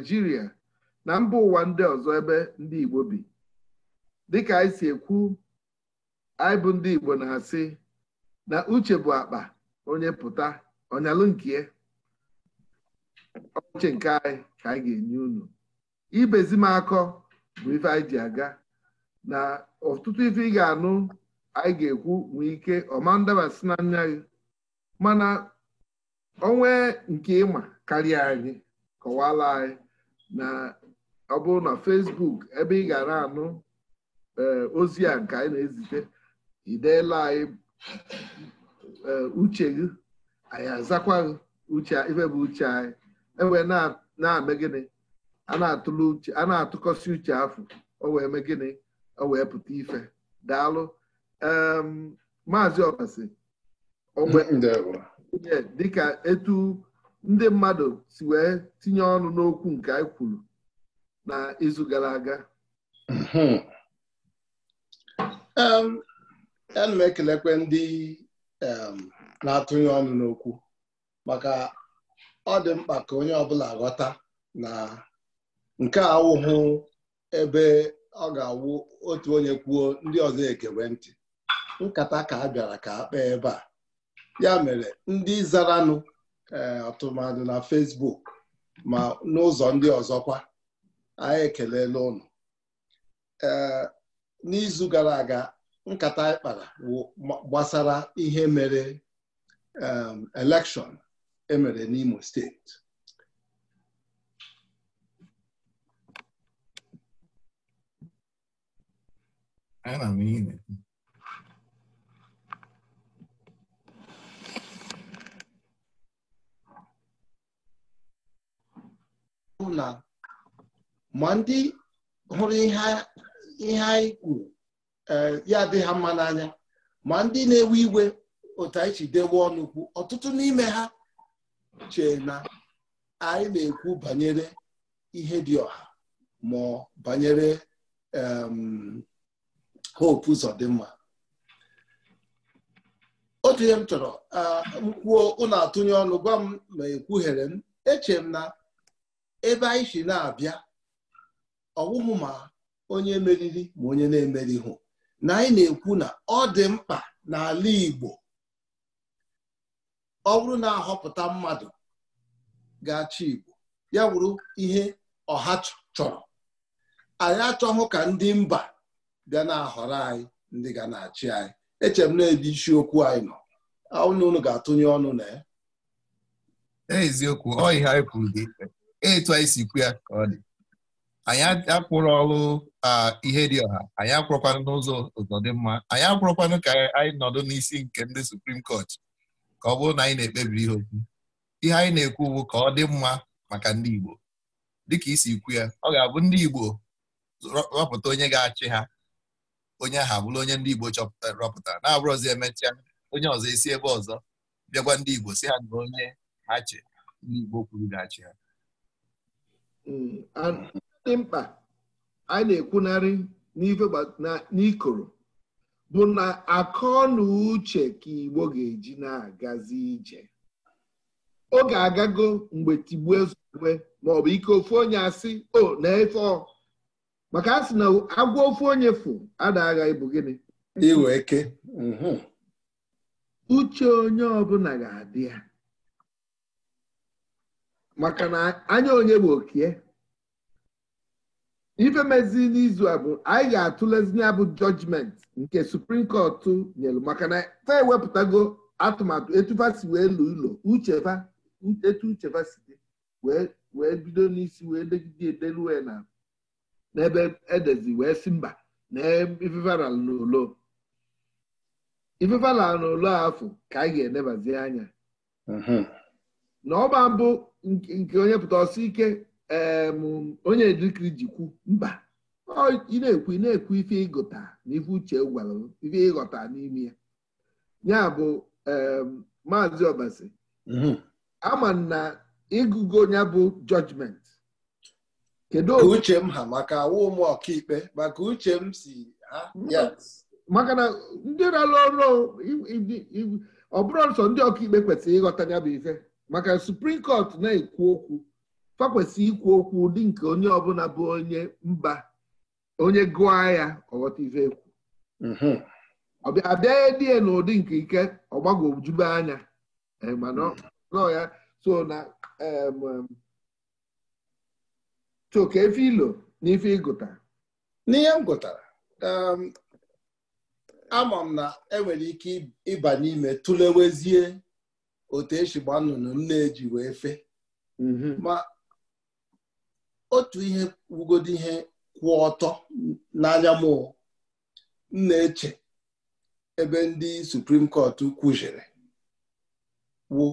naijiria na mba ụwa ndị ọzọ ebe ndị igbo bi dịka anyị si ekwu anyị bụ ndị igbo na-asị na uche bụ akpa onye pụta ọnyalụ nke ọchị nke anyị ka anyị ga-enye unu ibezi m akọ bụ ife anyị ji aga na ọtụtụ ife ị ga-anụ anyị ga-ekwu nwee ike ọma ndabasị na gị mana onwe nke ịma karịa anyị kọwala anyị na ọ bụrụ na Facebook ebe ị gara anụ eh, ozi a nke anyị na-ezite ideela anyị eh, uche gị anyị azakwa gị uche ife bụ uche anyị enwe na-eme gịnị a na-atụkọsị uche afọ o wee mee gịnị o wee pụta ife daalụ maazị ọbasi dịka etu ndị mmadụ si wee tinye ọnụ n'okwu nke anyị kwuru na izu gara aga hmm. um, ana m ekelekwe ndị um, na-atụnye ọnụ n'okwu maka ọ dị mkpa ka onye ọ bụla ghọta na nke wụhụ ebe ọ ga-awụ otu onye kwuo ndị ọzọ ekewe ntị nkata ka a bịara ka a kpee ebe a ya mere ndị zaranụ ọtụmadụ e, na fesbuk ma n'ụzọ ndị ọzọkwa anyị ekelela ụnụ ee n'izu gara aga nkata anyị kpara gbasara ihe mere e, elekshọn emere n'Imo steeti na ma ndị hụrụ ihe anyị kwuru eh, ya dị ha mma n'anya ma ndị na-ewe iwe otu anyị chi dewe ọnụ ọtụtụ n'ime ha chee na anyị na-ekwu banyere ihe dị ọha ma banyere hope ụzọ dị mma otu ihe m chọrọ ah, m kwuo ụnụ atụnye ọnụ gwa m ma ekwughere m eche m na ebe anyị si na-abịa ọwụhụ ma onye meriri ma onye na hụ na anyị na-ekwu na ọ dị mkpa n'ala Igbo ọ bụrụ na-ahọpụta mmadụ ga-achị Igbo ya bụrụ ihe ọha chọrọ anyị achọghị ka ndị mba ga na-ahọrọ anyị ndị ga na-achị anyị echem m na-ebe isiokwu anyị nọ ụnụ ga-atụnye ọnụ na ya eziokwu ọ ihe anyị kwuru dị etu anyị si kwu ya ka ọ dị anyị akwụrụ ọrụ ihe dị ọha anyị akwụrụkwanụ n'ụzọ ụzọ dị mma anyị akwụrụkwanụ ka anyị nọdụ n'isi nke ndị Suprim Kọt ka ọ bụrụ na anyị na-ekpebi ihe okwu ihe anyị na-ekwu bụ ka ọ dị mma maka ndị Igbo dịka isi ikwu ya ọ ga-abụ ndị Igbo rọpụta onye ga-achị ha onye aha bụrụ onye ndị Igbo chọpụtara eh, rọpụtara na-abụrụ ọzọ emechaa onye ọzọ esi ebe ọzọ bịakwa ndị Igbo si ha na onye ha ndị Igbo kwuru ga-achị ha Mm. dị mkpa anyị na-ekwunarị n'ikoro bụ na akọ na uche ka Igbo ga-eji na-agazi ije oge agago mgbe tigbuo ọ maọbụ ike ofu onye asị o na-efe maka a sị na agwa ofu onye fụ adagha ịbụ gịnị iwe eke mhm. uche onye ọbụla ga-adị ya maka na anya onye bụ okie eh? ife mezi n'izu a bụ anyị ga-atụlezi ya bụ jọjmenti nke suprim kọt nyelu maka na ta ewepụtago atụmatụ etufa si wee lu ụlọ uchefa etu uchefa si dị wee bido n'isi wee degide edeluwe na n'ebe edezi wee si mba na ifefara n'ụlọ na n'ụlọ afọ ka anyị ga-enebazi anya na ọba bụ nke onye pụta ọsọ ike onye dịkiri jikwu mba ọ na-ekwu na-ekwu ife ịgụta na ife uche gwara ife ịghọta n'ime ya ya bụ maazị ọbasi mhm. ama na ịgụgo ya bụ jọjment kedu uche m ha maka awụ ụmụ ọkaikpe maka uche m si ha maka na ndị na-alụ ọrụ ọbụrụ bụrụ ndị ọkaikpe kwesịrị ịghọta ya bụ ife maka suprim kọt na-ekwu okwu fakwesị ikwu okwu ụdị nke onye ọbụla bụ onye mba onye gụọ ya ọghọta ife ekwu mhm. ọbịa abịaghị dị n'ụdị nke ike ọgbagojube anya e, mhm. ya so na choke efe ilo na ife ịgụta n'ihe m gụtara ama m na enwere ike ịba n'ime tụlewezie otu esi gba nnụnụ m na-eji wee fe mhm. ma otu ihe wugodi ihe kwụ ọtọ n'anya m m na-eche ebe ndị suprim kọt kwujere wụ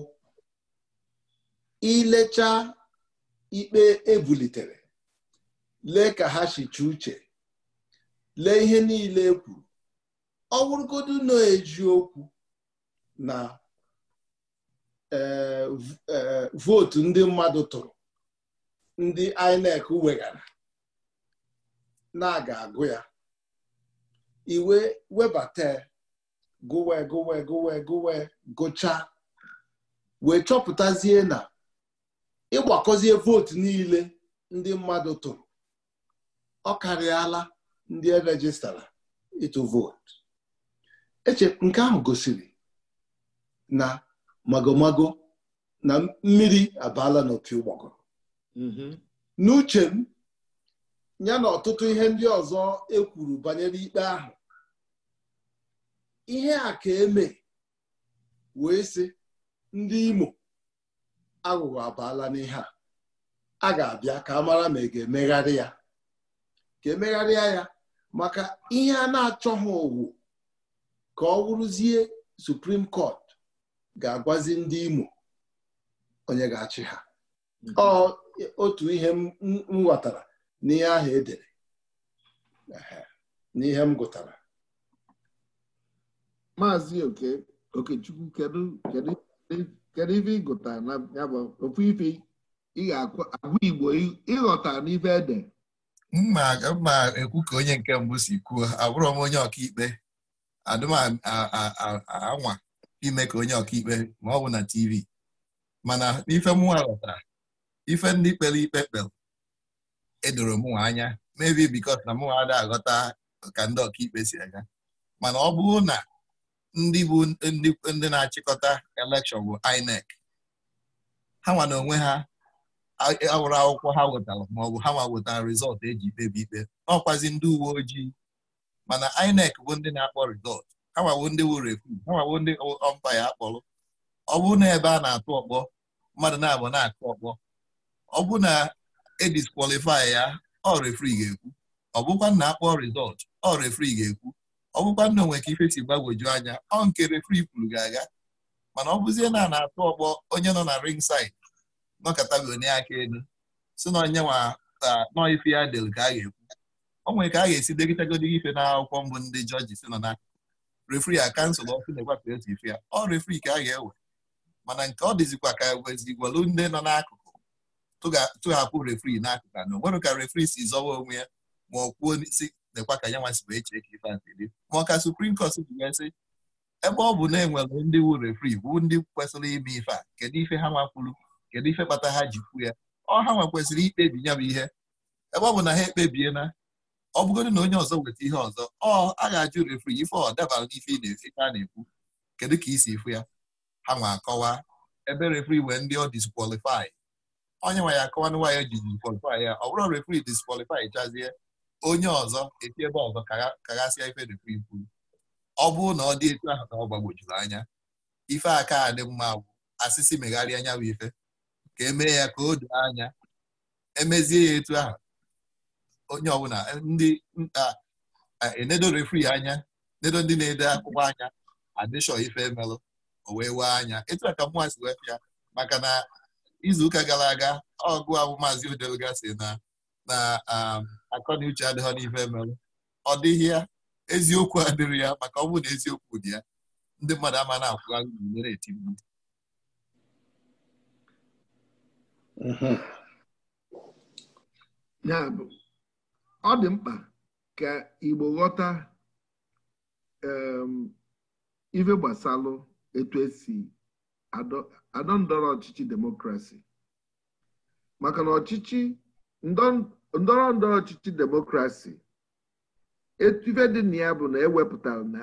ilecha ikpe ebulitere lee ka ha shicha uche lee ihe niile e kwuru ọ bụrụgodu na eji okwu na Eh, vootu eh, ndị mmadụ tụrụ ndị INEC weghara na-aga agụ ya iwe webata gụwe gụwe gụwe gụwe gụchaa wee chọpụtazie na ịgbakọzie vootu niile ndị mmadụ tụrụ ọ karịala ndị erejistara ịtụ vootu eche nke ahụ gosiri na magomago na mmiri abala n'opi ụgbọgọ mm-hmm. n'uche m ya na ọtụtụ ihe ndị ọzọ ekwuru banyere ikpe ahụ ihe a ka eme wee sị ndị Imo aghụghọ abala n'ihe a a ga-abịa ka a mara ma e ga-emegharị ya ka emegharịa ya maka ihe a na-achọghị owu ka ọ wụrụzie Supreme Court ga-agwazi ndị Imo onye ga-achị ha otu ihe m ghọtara n'ihe ahụ edere n'ihe m gụtara maazị oke okechukwu kedu ife ịgụta na ya bụ ofu ife ị ga-agwa igbo ịghọta n'ife ede mma ekwu ka onye nke mbụ si kwuo abụrụ m onye ọkaikpe adụm anwa ime ka onye ọkaikpe ma ọ bụ na TV mana ife mụnwa ghọtara ife ndị kpere ikpe kpere edoro mụnwa anya maybe because na mụnwa ada aghọta ka ndị ọkaikpe si aga mana ọ bụrụ na ndị bụ ndị na-achịkọta elekshọn bụ INEC ha nwa na onwe ha awụrụ akwụkwọ ha wetara maọbụ ha nwa wetara rizọtụ eji kpebi ikpe ọkwazi ndị uwe ojii mana INEC bụ ndị na-akpọ rizọt awawo ndị wuru ekwu awawo ndị ọmpa ya akpọrọ ọ bụrụ na ebe a na-atụ ọkpọ mmadụ na-abụ na-akụ ọkpọ ọ bụrụ na ediskwalifai ya ọ refri ga-ekwu ọ bụkwa na akpọ rizọt ọ refri ga-ekwu ọ bụkwa na onwe ka ife si gbagwoju anya ọ nke refri kwuru ga-aga mana ọ bụzie na a na-atụ ọkpọ onye nọ na ring side nọkọtago onye aka elu si na onye nọ ife ya del ka a ga-ekwu o nwere ka a ga-esi degịtagodi ife na akwụkwọ mbụ ndị jọji si nọ refri a kansụl ọkụ na-egwapụ ezi ife ya ọ refri ka a ga-ewe mana nke ọ dịzikwa ka e wezigwalu ndị nọ n'akụkụ tụghapụ refri n'akụkụ anọ nwere ka refri si zọwa onwe ya ma ọ kwuo si nekwa ka ya nwa si wee chee ka ife adịrị ma ọ ka suprim kọt ji sị ebe ọ bụ na enwere ndị wu refri bụ ndị kwesịrị ime ife a kedu ife ha nwakwuru kedu ife kpata ha ji kwu ya ọ ha nwa kwesịrị ikpebi ya bụ ihe ebe ọ bụ na ha ekpebiena ọ bụgodị na onye ọzọ nweta ihe ọzọ ọ a ga-ajụ refri ife ọ dabara n'ife ị na-efe ka a na-ekwu kedu ka isi ifu ya ha nwa akọwa ebe refri wee ndị ọ diskwalifai onye nwa ya akọwa na nwaanyị ji diskwalifai ya ọ bụrụ refri diskwalifai chazie onye ọzọ eti ebe ọzọ kaghasịa ife refri kwuru ọ bụrụ na ọ dị etu ahụ ka ọ gbagbojuru anya ife aka dị mma gwụ asịsị megharịa anya bụ ife ka emee ya ka o doo anya emezie ya etu ahụ onye ọbụla eh, ndị nta mm, ah, ah, enedo eh, refri anya enedo ndị na-ede akwụkwọ anya adịshọ ife melụ o wee wee anya etu a ka mụnwa si wepịa maka na izuụka gara aga ọgụ ahụ maazị odeluga si na na um, na uche adịghọ n'ife melụ ọ dịghị ya eziokwu adịrị ya maka ọ na eziokwu dị ya ndị mmadụ ama na akwụ nyere eti mgbu mhm. ya ọ dị mkpa ka Igbo ghọta um, ife gbasalụ etu esi adọ ndọrọ ọchịchị demokrasi maka na ọchịchị ndọrọ ndọrọ ọchịchị demokrasi ife dị na ya bụ na ewepụtara na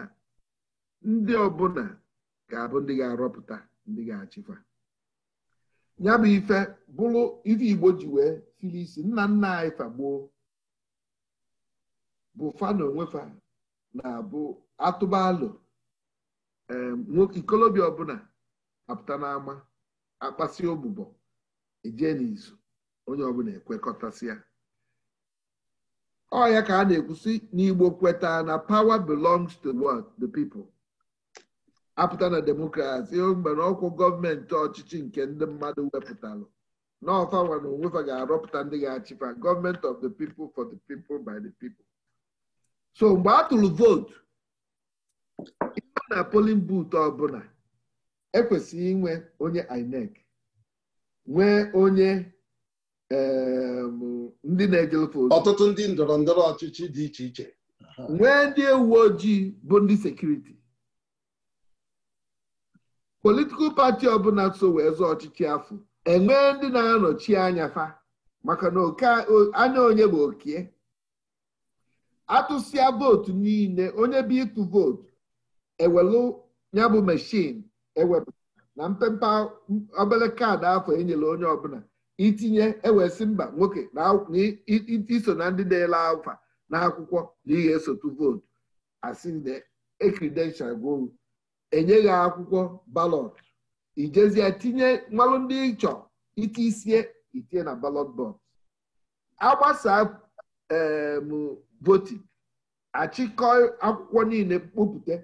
ndị ọbụla ga-abụ ndị ga-arọpụta ndị ga-achịkwa ya bụ ife bụrụ ife Igbo ji wee siri isi nna nna anyị fagbuo bụ fa na na-abụ atụbalụ nwoke ikolobịa ọbụla apụta n'ama akpasi ogbụbọ eje n'izu onye ọbụla ekwekọtasịa. ya ọ ka a na-ekwusi n'Igbo kweta na power belongs to what the people apụta na demokrasi mgbere ọkwụ gọọmenti ọchịchị nke ndị mmadụ wepụtalụ n'ọfanwa na onwefa ga-arọpụta ndị ga-achịfa gọọmenti of the people for the people by the people so mgbe a tụrụ vootu ịma na polin but ọbụla ekwesịghị inwe onye INEC nwee onye ehm, ndị na-ejelfe ojii. ọtụtụ ndị ndọrọ ndọrọ ọchịchị dị iche iche nwee ndị uwe ojii bụ ndị sekuriti politikal pati ọbụla so wee zụọ ọchịchị afọ enwee ndị na-anọchi anya fa maka na anya onye bụ okie atụsịa vootu niile onye bụ ịtụ vootu ewelu ya bụ meshin ewepụ na mpempe obere kaadị afọ enyere onye ọbụla itinye ewesị mba nwoke na iso na ndị na-ele afa na akwụkwọ na ihe esotu vootu asị na ekridenshal enye enyeghị akwụkwọ balọt ijezie tinye nwalụ ndị ịchọ iti isie itinye na balọt bọks agbasaa voting achịkọ akwụkwọ niile kpopụta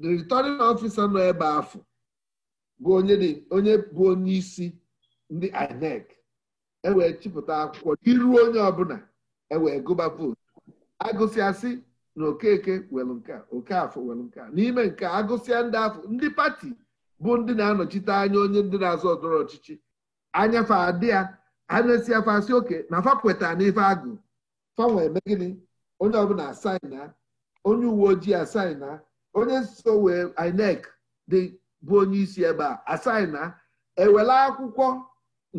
the returning officer nọ ebe afọ bụ onye bụ onye isi ndị INEC ewee chịpụta akwụkwọ iru onye ọbụla ewee gụba vootu agụsịasị na okeke welụ nke okafọ welụ nke n'ime nke agụsịa ndị afọ ndị pati bụ ndị na-anọchite anya onye ndị na-azọ ọdọrọ ọchịchị anyafe adị ya afọ asị oke na fa n'ife agụ fanwe eme gịnị onye ọbụla asaina onye uwe ojii asaina onye nso wee INEC dị bụ onye isi ebe a asaina ewela akwụkwọ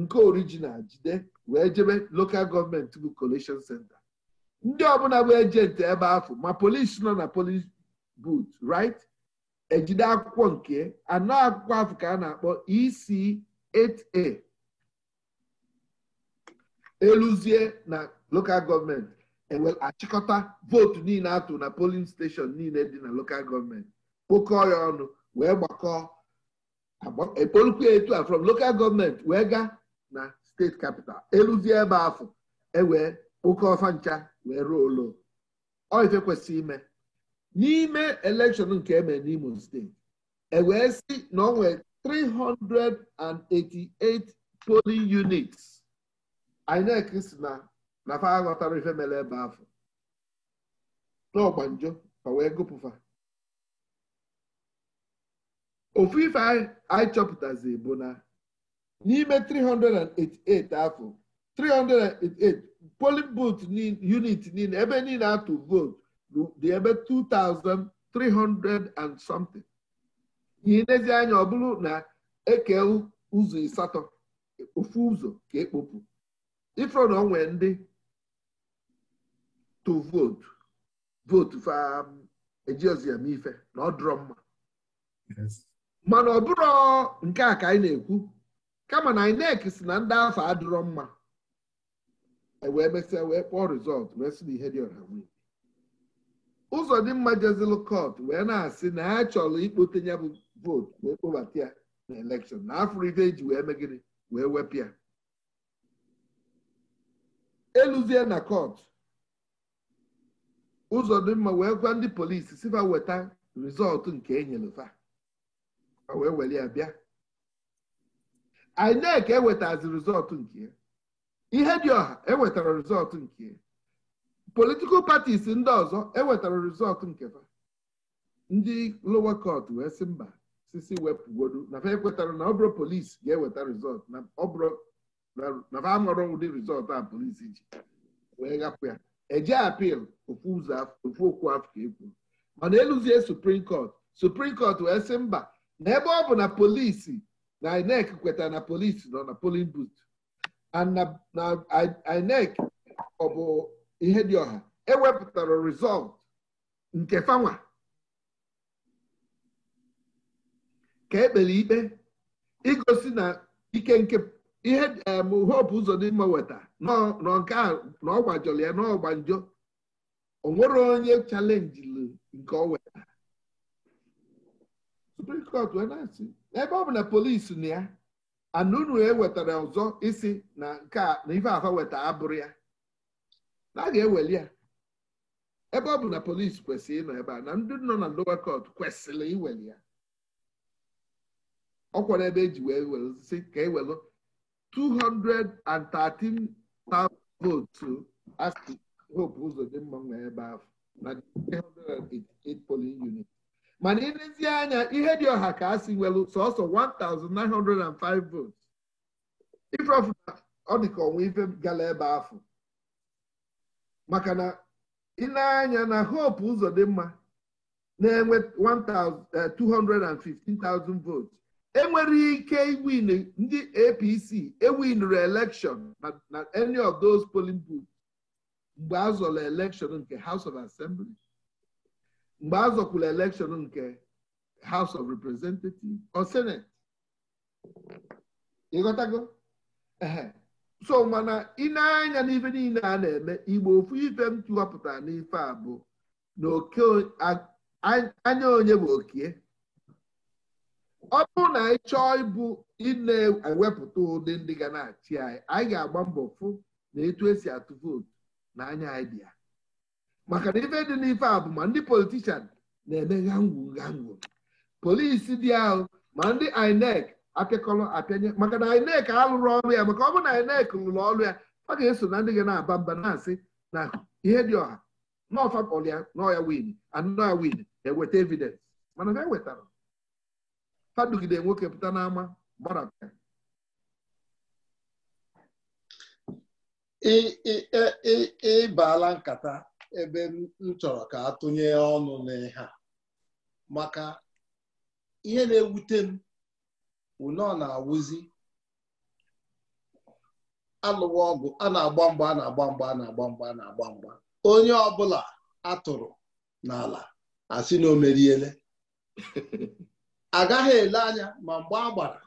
nke original jide wee jebe lokal gọọmenti bụ collection center ndị ọbụla bụ ejenti ebe ahụ ma polisi nọ na polis but right ejide akwụkwọ nke anọ akwụkwọ afọ ka a na-akpọ EC8A eluzie na lokal gọọmenti E achịkọta vootu niile atụ na polin steshọn niile dị na lokal gọọmenti kpokọọ ya ọnụ wee gbakọọ ekpolukwu etu a from local gọọmenti wee gaa na steeti kapital eluzie ebe afọ ewee kpokọọ fancha wee ruo ụlọ oife kwesịrị ime n'ime elekshọn nke eme n'Imo steeti wee si na ọ nwee 388 polin units INEC si na na aghọtara ife mere ebe afọ n'ọgba ka wee gụpụfa ofu ife anyị chọpụtazi bụ na n'ime 388 afọ 388 polin booth unit niile ebe niile atụ vootu dị ebe 2,300 and something n'ilezi anya ọ bụrụ na eke ụzọ ịsatọ ofu ụzọ ka ekpopu ifro na onwe ndị tụ vootu vootu faejiozụ um, ya mee ife na ọ dụrọ mma mana ọ bụrụ nke a ka anyị na-ekwu kama na INEC si na ndị afọ adụrọ mma e wee mesịa wee kpọọ rizọt wee sị na ihe dị ọha nwunye ụzọ dị mma jezilụ kọt wee na-asị na ha chọrọ ikpote ya bụ vootu wee kpọbata ya na elekshọn na afọ ife ji wee megide wee wepụ ya eluzie na kọt ụzọ dị mma wee gwa ndị polisi si fa weta rizọtụ nke enyelefa wee were ya bịa INEC ewetazi rizọtụ nke ya ihe dị ọha ewetara rizọtụ nke ya politikal patis ndị ọzọ ewetara rizọtụ nke fa ndị lower court wee sị mba sisi wepụgodu na fa ekwetara na ọbụrụ polisi ga-eweta rizọtụ na ọbụrụ na fa amụrụ ụdị rizọtụ a polisi ji wee gapụ ya eje apil ofu okwu afọ ekwu mana eluzie suprim cot suprim cot wee sị mba na ebe ọ bụ na polisi na inec kwetara na polisi nọ na polin but na inec ọ bụ ihe dị ọha ewepụtara rizọlt nke fanwa ka ekpere ikpe igosi na ike nke ihe hope ụzọ n'ime weta nọ nke a na ya n'ọgba njọ o nwere onye chalenjiri nke ọ weta Supreme Court ebe ọ bụ na polisi na ya anunu ewetara ọzọ isi na nke na ife afa weta abụrụ ya na a ga-eweli ya ebe ọ bụ na polisi kwesịrị ịnọ ebe a na ndị nọ na lower court kwesịrị iweli ya ọ kwara ebe eji wee were si ka ewelu 213,000 votes asị Hope Uzodimma nwee ebe ahụ na 388 polling unit mana ịlezie anya ihe dị ọha ka a si nwere sọsọ 1,905 votes ife ọfụma ọ dị ka ọnwa ife gara ebe ahụ maka na ile na Hope Uzodimma na-enwe 215,000 eh, votes enwere ike iwin ndị APC ewinuru elekshọn na any of those polling booths mgbe a zọrọ elekshọn nke House of Assembly mgbe a election elekshọn nke House of Representatives or Senate ịghọtago so mana ị na-anya n'ife niile a na-eme igbo ofu ife m n'ife a bụ na anya onye bụ okie ọ bụrụ na anyị chọọ ịbụ ịna-ewepụta ụdị ndị ga na-achị anyị anyị ga-agba mbọ fụ na etu esi atụ vootu na anya anyị dị ya maka na ife dị n'ife a bụ ma ndị politishan na-eme gangwu gangwu polisi dị ahụ ma ndị INEC apịakọrọ apịanye maka na INEC alụrụ ọrụ ya maka ọ bụrụ na INEC lụrụ ọrụ ya ọ ga-eso na ndị ga na-aba mba na-asị na ihe dị ọha n'ọfa ọlịa n'ọya win anụ ya win eweta evidence mana ha wetara ha dugide nwoke pụta n'ama gbarapịa ịbaala nkata ebe m chọrọ ka tụnye ọnụ n'ihe maka ihe na-ewute m ụnọ na-awụzi alụwa ọgụ a na-agba mgba a na-agba mgba a na-agba mgba a na-agba mgba onye ọbụla atụrụ n'ala asị na o meriele agaghị ele anya ma mgbe a gbara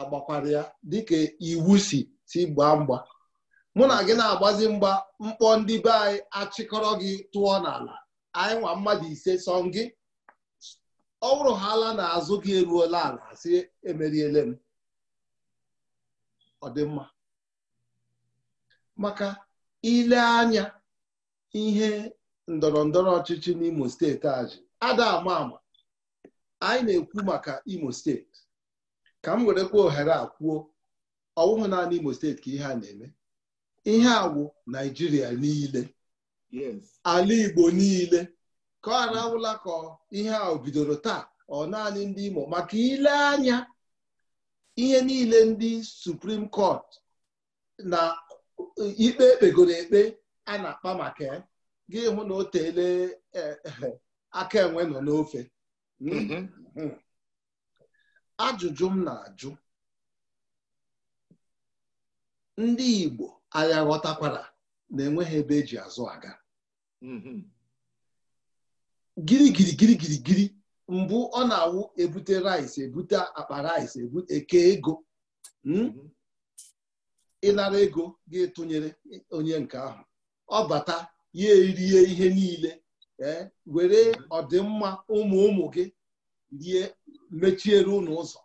agbakwara ya dịka iwu si si gbaa mgba mụ na gị na-agbazi mgba mkpọ ndị be anyị achịkọrọ gị tụọ n'ala anyị nwa mmadụ ise sọ gị ọ bụrụ ha ala n'azụ gị eruola ala si emeriele m ọ dị mma maka ile anya ihe ndọrọ ndọrọ ọchịchị n'Imo steeti aji ada ama anyị na-ekwu maka imo steeti ka m were kwa ohere a kwuo ọwụhụ naanị imo steeti ka ihe a na-eme ihe wụ naijiria niile ala igbo niile ka ọ arahụla ka ihe a bidoro taa ọ naanị ndị imo maka ile anya ihe niile ndị suprim kọt na ikpe ekpegoro ekpe a na-akpa maka gị hụ na o tele eh, eh, aka enwe nọ n'ofe Mhmm. Mm-hmm. ajụjụ m na-ajụ ndị Igbo agha ghọtakwara na-enweghị ebe eji azụ aga mm-hmm. giri giri giri mbụ ọ na-awụ ebute rice ebute akpa rice eke ego mhmm. mm-hmm. ịnara ego ga etonyere onye nke ahụ ọ bata ya erie ihe niile ee eh, were mhm. ọdịmma ụmụ ụmụ gị rie mechiere unu ụzọ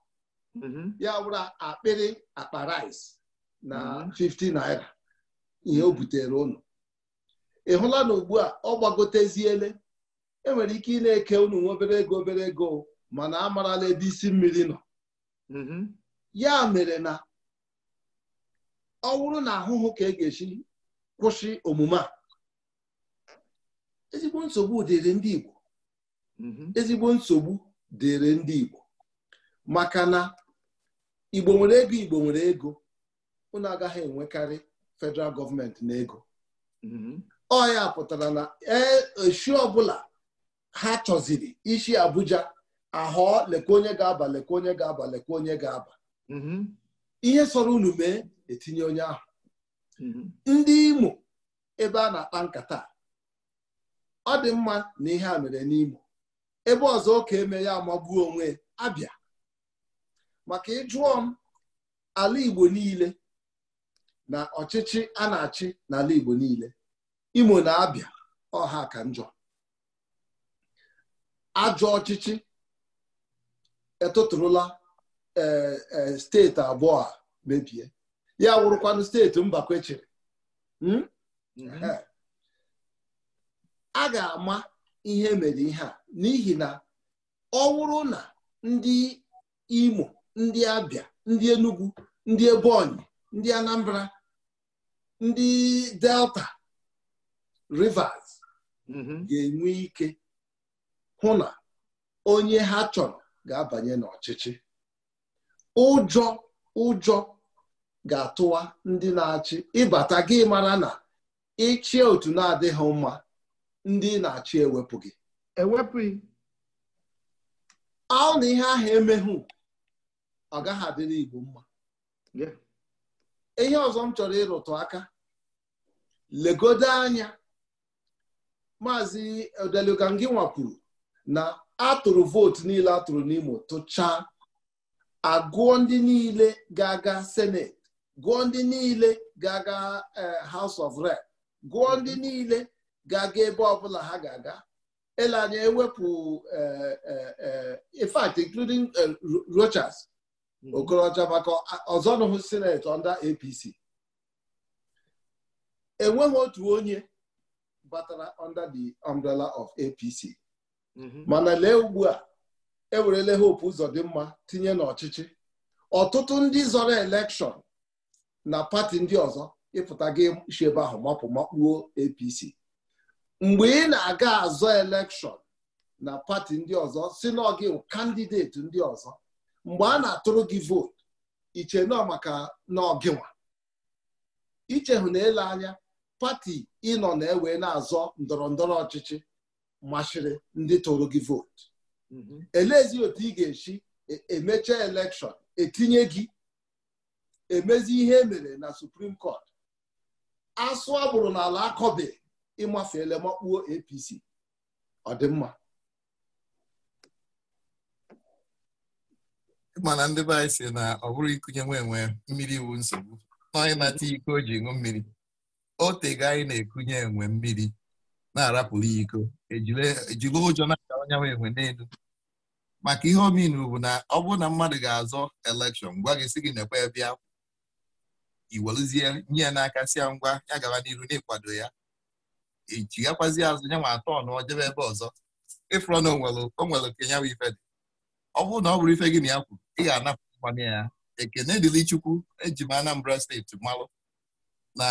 mhm. ya wụrụ akpịrị akpa rice na 50 mhm. naira ihe o butere ụnụ. ị hụla na ugbu a ọ gbagoteziele enwere ike ị na-eke unu obere ego obere ego mana a amarala ebe isi mmiri nọ ya mere na ọ wụrụ na ahụhụ ka e ga-esi kwụsị omume a ezigbo nsogbu dịrị ndị Igbo mm-hmm. ezigbo nsogbu dịrị ndị Igbo maka na Igbo nwere ego Igbo nwere ego unu agaghị enwekarị federal gọọmenti na ego mm-hmm. ọ ya pụtara na e echi ọbụla ha chọziri ishi Abuja ahọọ lekwa onye ga-aba lekwa onye ga-aba lekwa onye ga-aba mm-hmm. ihe sọrọ unu mee etinye onye ahụ ndị Imo ebe a na-akpa nkata ọ dị mma na ihe a mere n'Imo ebe ọzọ ka eme ya magbuo onwe abịa maka ịjụọ m ala Igbo niile na ọchịchị a na-achị n'ala Igbo niile Imo na Abịa ọha ka njọ ajọ ọchịchị etụtụrụla e, e, steeti abụọ a mebie ya wụrụkwanụ steeti mba chịrị hmm? mm-hmm. eh. a ga-ama ihe mere ihe a n'ihi na ọ bụrụ na ndị Imo ndị Abịa ndị Enugu ndị Ebonyi ndị Anambra ndị Delta Rivers mm-hmm. ga-enwe ike hụ na onye ha chọrọ ga-abanye n'ọchịchị ụjọ ụjọ ga-atụwa ndị na-achị ịbata gị mara na ịchịa otu na-adịghị mma ndị na-achị ewepụ gị ewepụghị ọ na ihe ahụ emeghụ ọ gaghị adịrị mma ihe ọzọ m chọrọ ịrụtụ aka legode anya maazị Odelugangi nwapụrụ na atụrụ vootu niile atụrụ n'Imo tụchaa agụọ ndị niile ga-aga senet gụọ ndị niile ga-aga eh, House of Rep gụọ ndị mm-hmm. niile ga-aga ebe ọbụla ha ga-aga ele anya ewepụ e, e, e, in fact including Rochas hmm. Okorocha maka ọzọnụhụ seneti under APC enweghị otu onye batara under the umbrella of APC mm-hmm. mana lee ugbu a ewerele hope ụzọ dị mma tinye n'ọchịchị ọtụtụ ndị zọrọ elekshon na pati ndị ọzọ ịpụta gị ebe ahụ mapụ makpuo APC mgbe ị na-aga azọ elekshọn na pati ndị ọzọ si n'ọgị kandideti ndị ọzọ mgbe a na-atụrụ gị vootu iche nọ maka n'ọgịnwa ichehụ na ele anya pati ịnọ na-ewe na-azọ ndọrọ ndọrọ ọchịchị machiri ndị tụrụ gị vootu mm-hmm. elezi otu ị ga-esi e, emecha elekshọn etinye gị emezi ihe emere na suprim kọt asụ agbụrụ n'ala akọbeghị ịmafeele makpuo APC ọ dị mma mana ndị be anyị si na ọ bụrụ ikunye nwe enwe mmiri iwu nsogbu n'onye na iko o ji ṅụ mmiri o tega anyị na-ekunye enwe mmiri na-arapụrụ ya iko ejiri ụjọ na-aga onye nwe enwe n'elu maka ihe omin bụ na ọ bụrụ na mmadụ ga-azọ elekshọn gwa gị si gị na nekwe bịa iweluzie nye ya n'aka si ngwa ya gawa n'iru na-ekwado ya ichigakwazi azụ nyanwa atọ nụọ jebe ebe ọzọ ịfụrọ na onwere okenye nwa ife dị ọ bụrụ na ọ bụrụ ife gị na ya kwuru ị ga-anapụ mmanụ ya ekene dịrị Chukwu eji m Anambra steeti malụ um, na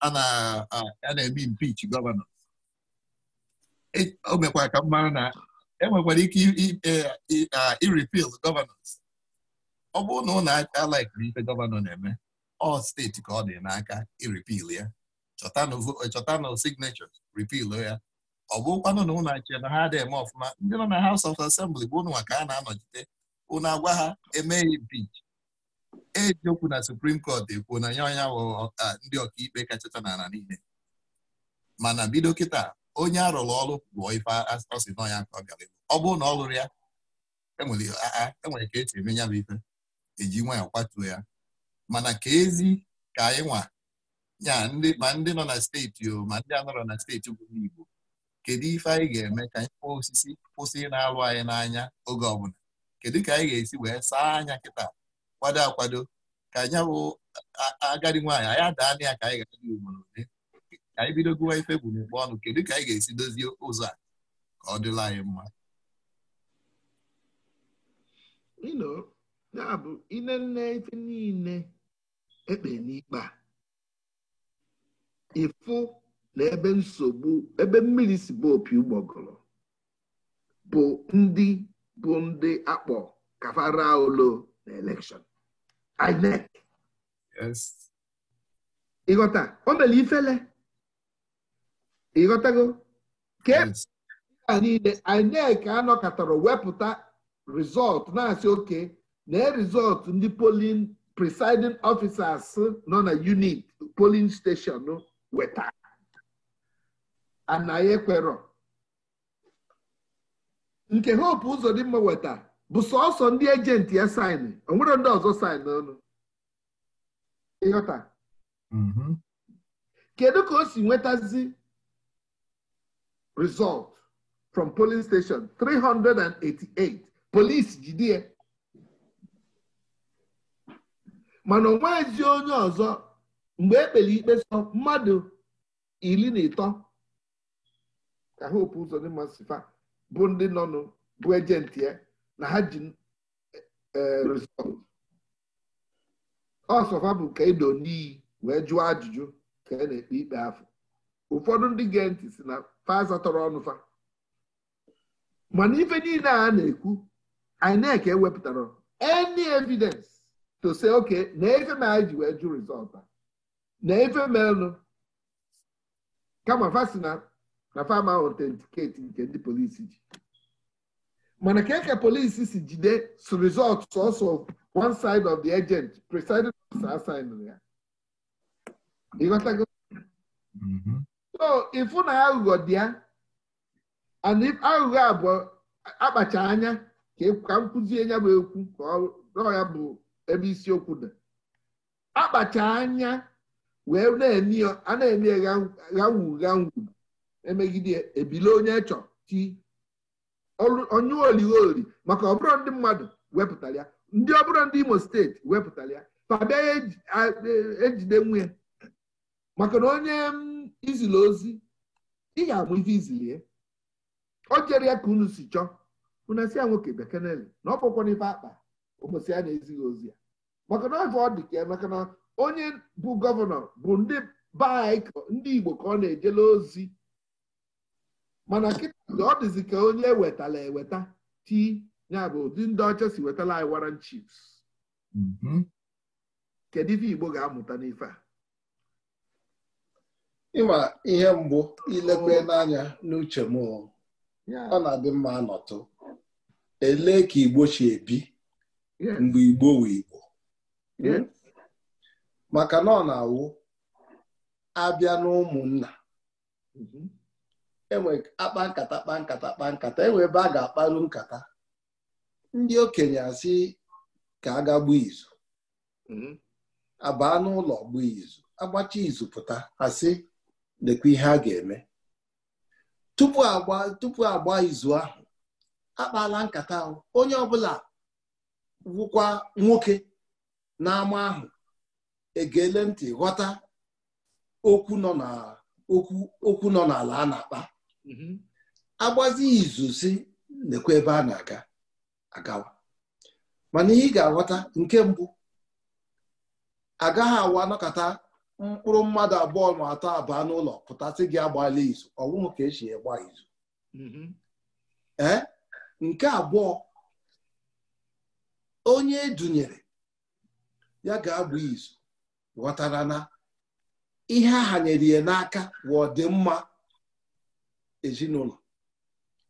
a na-eme impichi gọvanọ e, o mekwa ka m mara na enwekwara ike iripil e, gọvanọs ọ bụrụ na ụnụ alaikiri ife gọvanọ na-eme ọ steeti ka ọ dị n'aka iripil ya chọtanụ signatures repeal oh ya ọ bụkwanụ na ụnụ achị na ha adịghị eme ọfụma ndị nọ na House of Assembly bụ ụnụ ka a na-anọchite ụnụ agwa ha emeghị impeach ejiokwu na Supreme Court ekwuo na ya ọnya ndị ọkaikpe kachacha n'ala niile mana bido kịta onye arụrụ ọrụ bụ ife ọ nọ ya nke ọ ọ bụrụ na ọ lụrụ ya enwere e ka esi eme bụ ife eji nwa kwatuo ya mana ka ezi ka anyị nwa ya ma ndị nọ na steeti o ma ndị anọrọ na steeti bụrụ Igbo kedu ife anyị ga-eme ka anyị kpọọ osisi kwụsị na-alụ anyị n'anya oge ọbụla kedu ka anyị ga-esi wee saa anya kịta kwado akwado ka anyị bụ agadi nwaanyị anyị adaana ya ka anyị ga-adị ugboro ole ka anyị bido gụwa ife bụ n'ụkpọ ọnụ kedu ka anyị ga-esi dozie ụzọ a ka ọ dịla anyị mma ya bụ ile nne ife niile ekpe n'ikpe a ịfụ na ebe nsogbu ebe mmiri si bụ opi ụgbọgụrụ bụ ndị bụ ndị akpọ kafara olo na elekshọn INEC ịghọta o mere ifele ịghọtago ka e a niile INEC anọkọtara wepụta rizọt na-asị oke na rizọt ndị polin presiding officers nọ na unit polin steshọn weta anaghị ekwerọ nke hope ụzọ dị mma weta bụ sọọsọ ndị ejenti ya saịnụ onwere ndị ọzọ saịnụ ọnụ ịghọta mm-hmm. kedu ka o si nwetazi result from polin station 388 police jide ya mana onwe ezi onye ọzọ mgbe ekpere ikpe so mmadụ iri na ịtọ ka hope ụzọ dị fa bụ ndị nọnụ bụ ejenti ya na ha ji e, e, resọt ọsọfa bụ nke ido n'iyi wee jụọ ajụjụ ka a e na-ekpe ikpe afọ ụfọdụ ndị gee ntị si na tọrọ ọnụ fa mana ife niile a na-ekwu INEC ewepụtara any evidence to say okay na efe ma anyị ji wee jụ rizọtụ a na efe melụ kama fasi na na fam ahụ otentiketi nke ndị polisi ji mana ka eke polisi si jide so result sọsọ one side of the agent presiding officer assigned ya ịghọtago mm-hmm. so ịfụ na aghụghọ dị ya and if aghụghọ abụọ akpacha anya e ka m kụzie ya bụ ekwu ka ọ ya bụ ebe isiokwu dị akpacha anya wee a na-eme ghanwu ghanwu emegide ebili onye chọ ti onye oligholi maka ọbụrụ ndị mmadụ wepụtara ya ndị ọbụrụ ndị imo steeti wepụtara ya fabia ejide e, e nwunye maka na onye izili ozi ị ga-amụ ife izilie o jere ya ka unu si chọọ unu si ya nwoke bekee na ọ bụkwana n'ife akpa ụbọchị ya na-ezighị ozi ya maka na ọ dị ka ya maka na onye bụ gọvanọ bụ ndị baik ndị Igbo ka ọ na ejela ozi mana kịta ọ dịzị ka onye wetala eweta ti ya bụ ụdị ndị ọcha si wetala anyị waran chips. Mm-hmm. kedu ife Igbo ga-amụta n'ife a ịma ihe mbụ ilekwe n'anya n'uche m ọ na-adị mma anọtụ elee ka Igbo chi ebi mgbe Igbo wee Igbo hmm? maka na ọ na-awụ abịa n'ụmụnna mhm. enwe akpa nkata kpa nkata kpa nkata enwe ebe a ga-akparu nkata ndị okenye asị ka a ga gbuo izu mhm. abaa n'ụlọ gbuo izu agbacha izu pụta asị lekwa ihe a ga-eme tupu agba tupu agba izu ahụ akpala nkata ahụ onye ọbụla wụkwa nwoke n'ama ahụ egele ntị ghọta okwu nọ okwu nọ n'ala a na-akpa mm-hmm. agbazi izu si nekwa ebe a na-aga agawa mana ihe ị ga-aghọta nke mbụ agaghị awa anọkọta mkpụrụ mmadụ abụọ ma atọ abụọ n'ụlọ pụtasị gị agbala izu ọnwụhụ ka esi gba izu mm-hmm. ee eh? nke abụọ onye edunyere ya ga-agba izu ghọtara na ihe a hanyere ya n'aka bụ ọdịmma ezinụlọ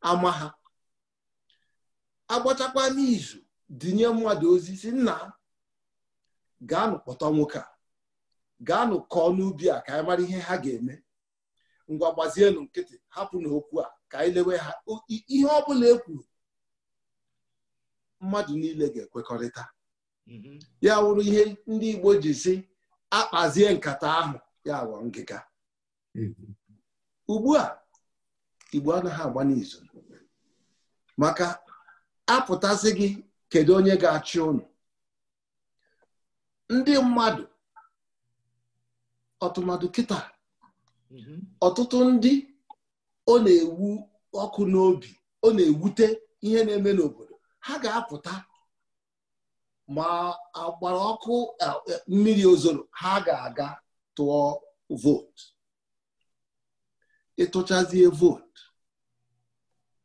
ama ha agbachakwa n'izu dinye mmadụ ozi si nna gaanụ kpọtọ nwoke a gaanụ kọọ n'ubi a ka anyị mara ihe ha ga-eme ngwa gbazienụ nkịtị hapụ n'okwu a ka anyị lewe ha ihe ọ bụla e mmadụ niile ga-ekwekọrịta mm-hmm. ya wụrụ ihe ndị Igbo ji si akpazie nkata ahụ ya ghọọ ngịga ugbu a igbo anaghị agba n'izu maka apụtasị gị kedu onye ga-achị ụnụ ndị mmadụ ọtụmadụ kịta ọtụtụ ndị ọ na-ewu ọkụ n'obi ọ na-ewute ihe na-eme n'obodo ha ga-apụta ma agbara ọkụ e, mmiri ozoro ha ga-aga tụọ vootu ịtụchazie vootu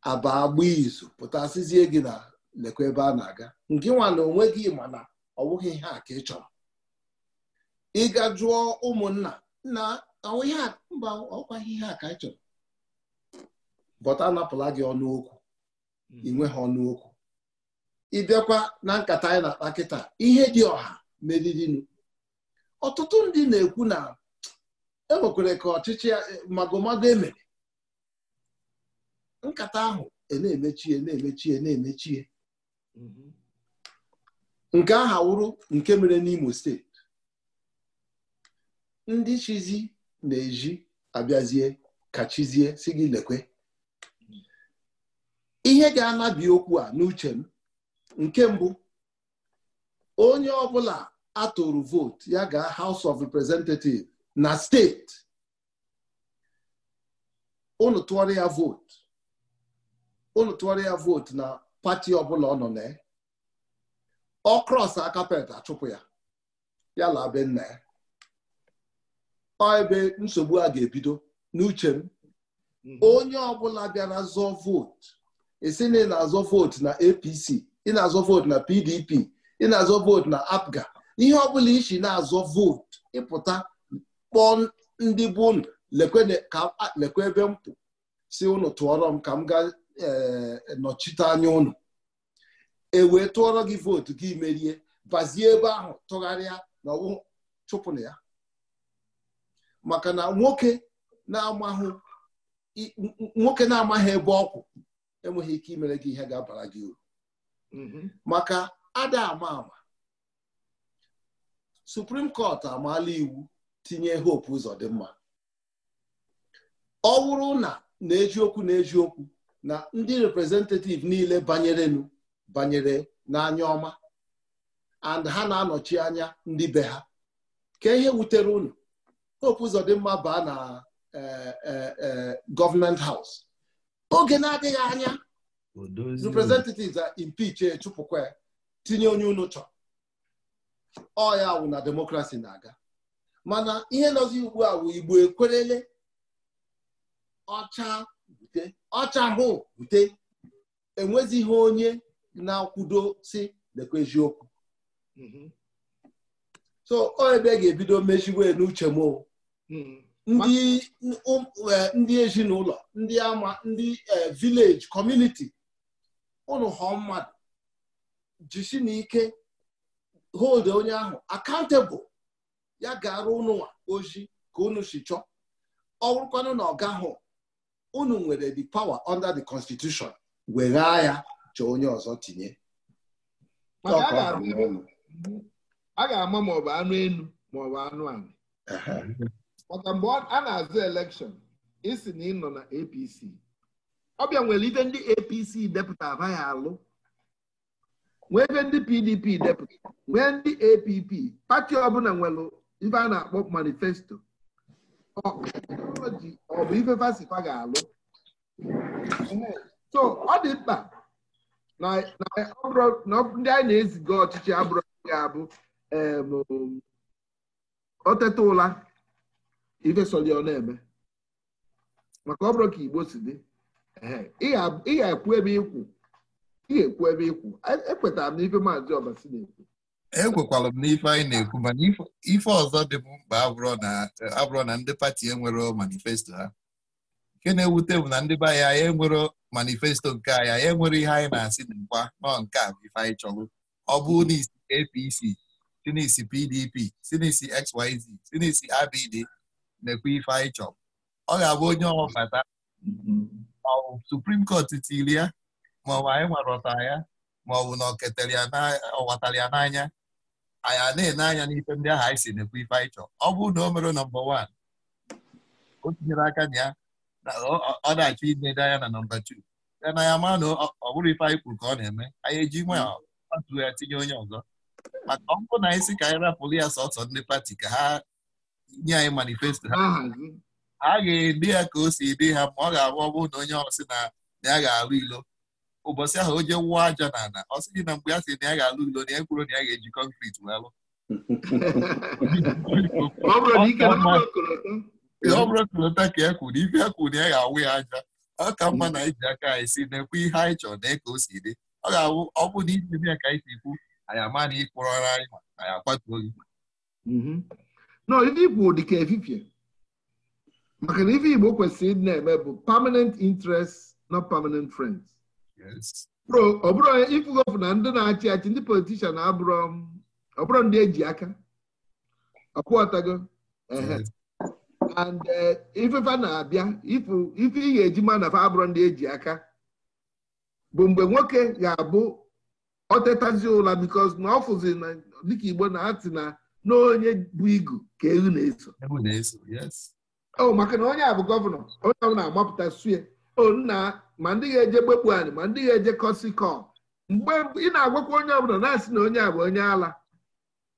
aba agba izu pụtasịzie gị na lekwa ebe a na-aga nke nwa na onwe gị mana ọ bụghị ihe a ka ị chọrọ ịga jụọ ụmụnna na mba ọkwaghị ihe a ka ị chọrọ bọta anapụla gị ọnụ okwu inwe ha ọnụ ịbịakwa na nkata anyị na-akpa kịta ihe dị ọha meriri ọtụtụ ndị na-ekwu na e enwekwere ka ọchịchị eh, magomago emere nkata ahụ na-emechie na-emechie na-emechie mhm. nke aha wụrụ nke mere n'Imo steeti ndị chizi na-eji abịazie ka chizie si gị lekwe mhm. ihe ga-anabi okwu a n'uche m nke mbụ onye ọbụla atụrụ vootu ya ga House of Representatives na steeti unu tụọrọ ya vootu unu tụọrọ ya vootu na pati ọbụla ọ nọ na ọ krọs akapet achụpụ ya ya la nna ya ọ ebe nsogbu a ga-ebido n'uche m mhm. onye ọbụla bịara zọọ vootu esi na azọ vootu na APC ị na-azọ vootu na PDP ị na-azọ vootu na APGA ihe ọbụla isi na-azọ vootu ịpụta kpọọ ndị bụ unu lekwe ebe m pụ si unu tụọrọ m ka m ga eh, nọchite anya unu e wee tụọrọ gị vootu gị merie bazie ebe ahụ tụgharịa na ọwụ chụpụna ya maka na nwoke na-amaghị ebe ọkwụ enweghị ike imere gị ihe ga-abara gị uru Mm-hmm. maka ada ama ama Supreme Court amaala iwu tinye Hope Uzodimma ọ wụrụ na na-eji na-eji okwu na ndị representative niile banyerenu banyere na n'anya ọma and ha na-anọchi anya ndị be ha ka ihe wutere unu Hope mma baa na eh, eh, eh, gọọmenti haus oge na-adịghị anya representatives a impeach ya eh, echụpụkwa tinye onye unu chọrọ ọ na demokrasi na-aga mana ihe nọzi ugbu a wụ igbo ekwerele ọcha bute ọcha hụ bute onye na-akwudo si lekwa eziokwu mhm. so ọ ebe e ga-ebido mechiwe n'uche m mhm. um, eh, ndị ezinụlọ ndị ama ndị eh, vileji kọmuniti ụnụ họọ mmadụ jisi na ike hold onye ahụ akantebụl ya ga-arụ ụnụnwa ozi ka unu si chọọ ọ bụrụkwanụ na ọ gahụ unu nwere the power under the constitution weghaa ya chọọ onye ọzọ tinye a ga-ama maọbụ anụ enu maọbụ anụ anụ. maka mgbe a na-azụ elekshọn isi na ị nọ na APC ọbịa nwere ife ndị apc depụta ya alụ nwee ebe ndị pdp depụta nwee ndị app pati ọbụla nwere ife a na-akpọ manifesto ọ bụ ife fasikwa ga-alụ so ọ dị mkpa na ndị anyị na-eziga ọchịchị abụrụ ga-abụ oteta ụla ife na-eme maka ọ ka igbo si dị ị ga-ekwu ebe ikwu ị ga-ekwu ebe ikwu ekwetara e m n'ife maazị ọbasi na-ekwu ekwekwara m n'ife anyị na-ekwu mana ife ọzọ dị m mkpa abụrụ na ndị pati enwero manifesto ha nke na-ewute bụ na ndị be anyị anyị enwero manifesto nke anyị anyị enwere ihe anyị na-asị nkwa nọ nke a bụ ife anyị chọrọ ọ bụ na isi APC sinisi PDP sinisi XYZ sinisi ABD na-ekwe ife anyị chọrọ ọ ga-abụ onye ọbata mm-hmm. maọbụ suprim kọt tiri ya maọbụ anyị nwarọta ya maọbụ na ọ ya n'anya anyị na-ene anya n'ife ndị ahụ anyị si n'ekwu ife anyị chọọ ọ bụrụ na o mere nọmba wan o tinyere aka na ya ọ na-achọ inedo anya na nọmba tu ya na ya ma na ọ bụrụ ife anyị kwuru ka ọ na-eme anyị eji atụ ya tinye onye ọzọ maka ọ bụrụ na anyị si ka anyị rapụrụ ya sọsọ ndị pati ka ha nye anyị manifesto ha ah, a ga edi ya ka o si ede ha ma ọ ga-abụ ọgwụ na onye ọsị na ya ga-alụ ilo ụbọchị ahụ o je wụọ aja na ala ọ sị gị na mgbe ya si na ya ga-alụ ilo na ya kwuru na ya ga-eji kọnkrit wee lụ ọ bụrụ kolota ka ya e kwuru ife e kwuru na ya ga-awụ ya aja ọ ka mma na iji aka anyị si na ekwu ihe anyị chọrọ na ka o si dị ọ ga-awụ ọgwụ na iji ime ya ka anyị si ikwu anyị ama na ịkpụrọra anyị ma anyị akwatuo gị mhm. ikwu dị ka efifie maka na ife Igbo kwesịrị ịdị na-eme bụ permanent interest not permanent friends. ọ bụrụ onye ịfụgo na ndị na-achị achị ndị politishan abụrụ um, ọ bụrụ ndị eji aka ọkwụọtago and eh, ifefa na-abịa ife ị ga-eji ma na abụrụ ndị eji aka bụ mgbe nwoke ga-abụ otetazi ụla because na ọ fụzi dịka Igbo na-atị na n'onye bụ igu ka ehu na-eso o oh, maka na onye a bụ gọvanọ onye ọbụla agbapụta sue o oh, nna ma ndị ga-eje gbekpu anyị ma ndị ga-eje kọsikọ mgbe ị na-agwakwa onye ọbụla na-asị na onye a bụ onye ala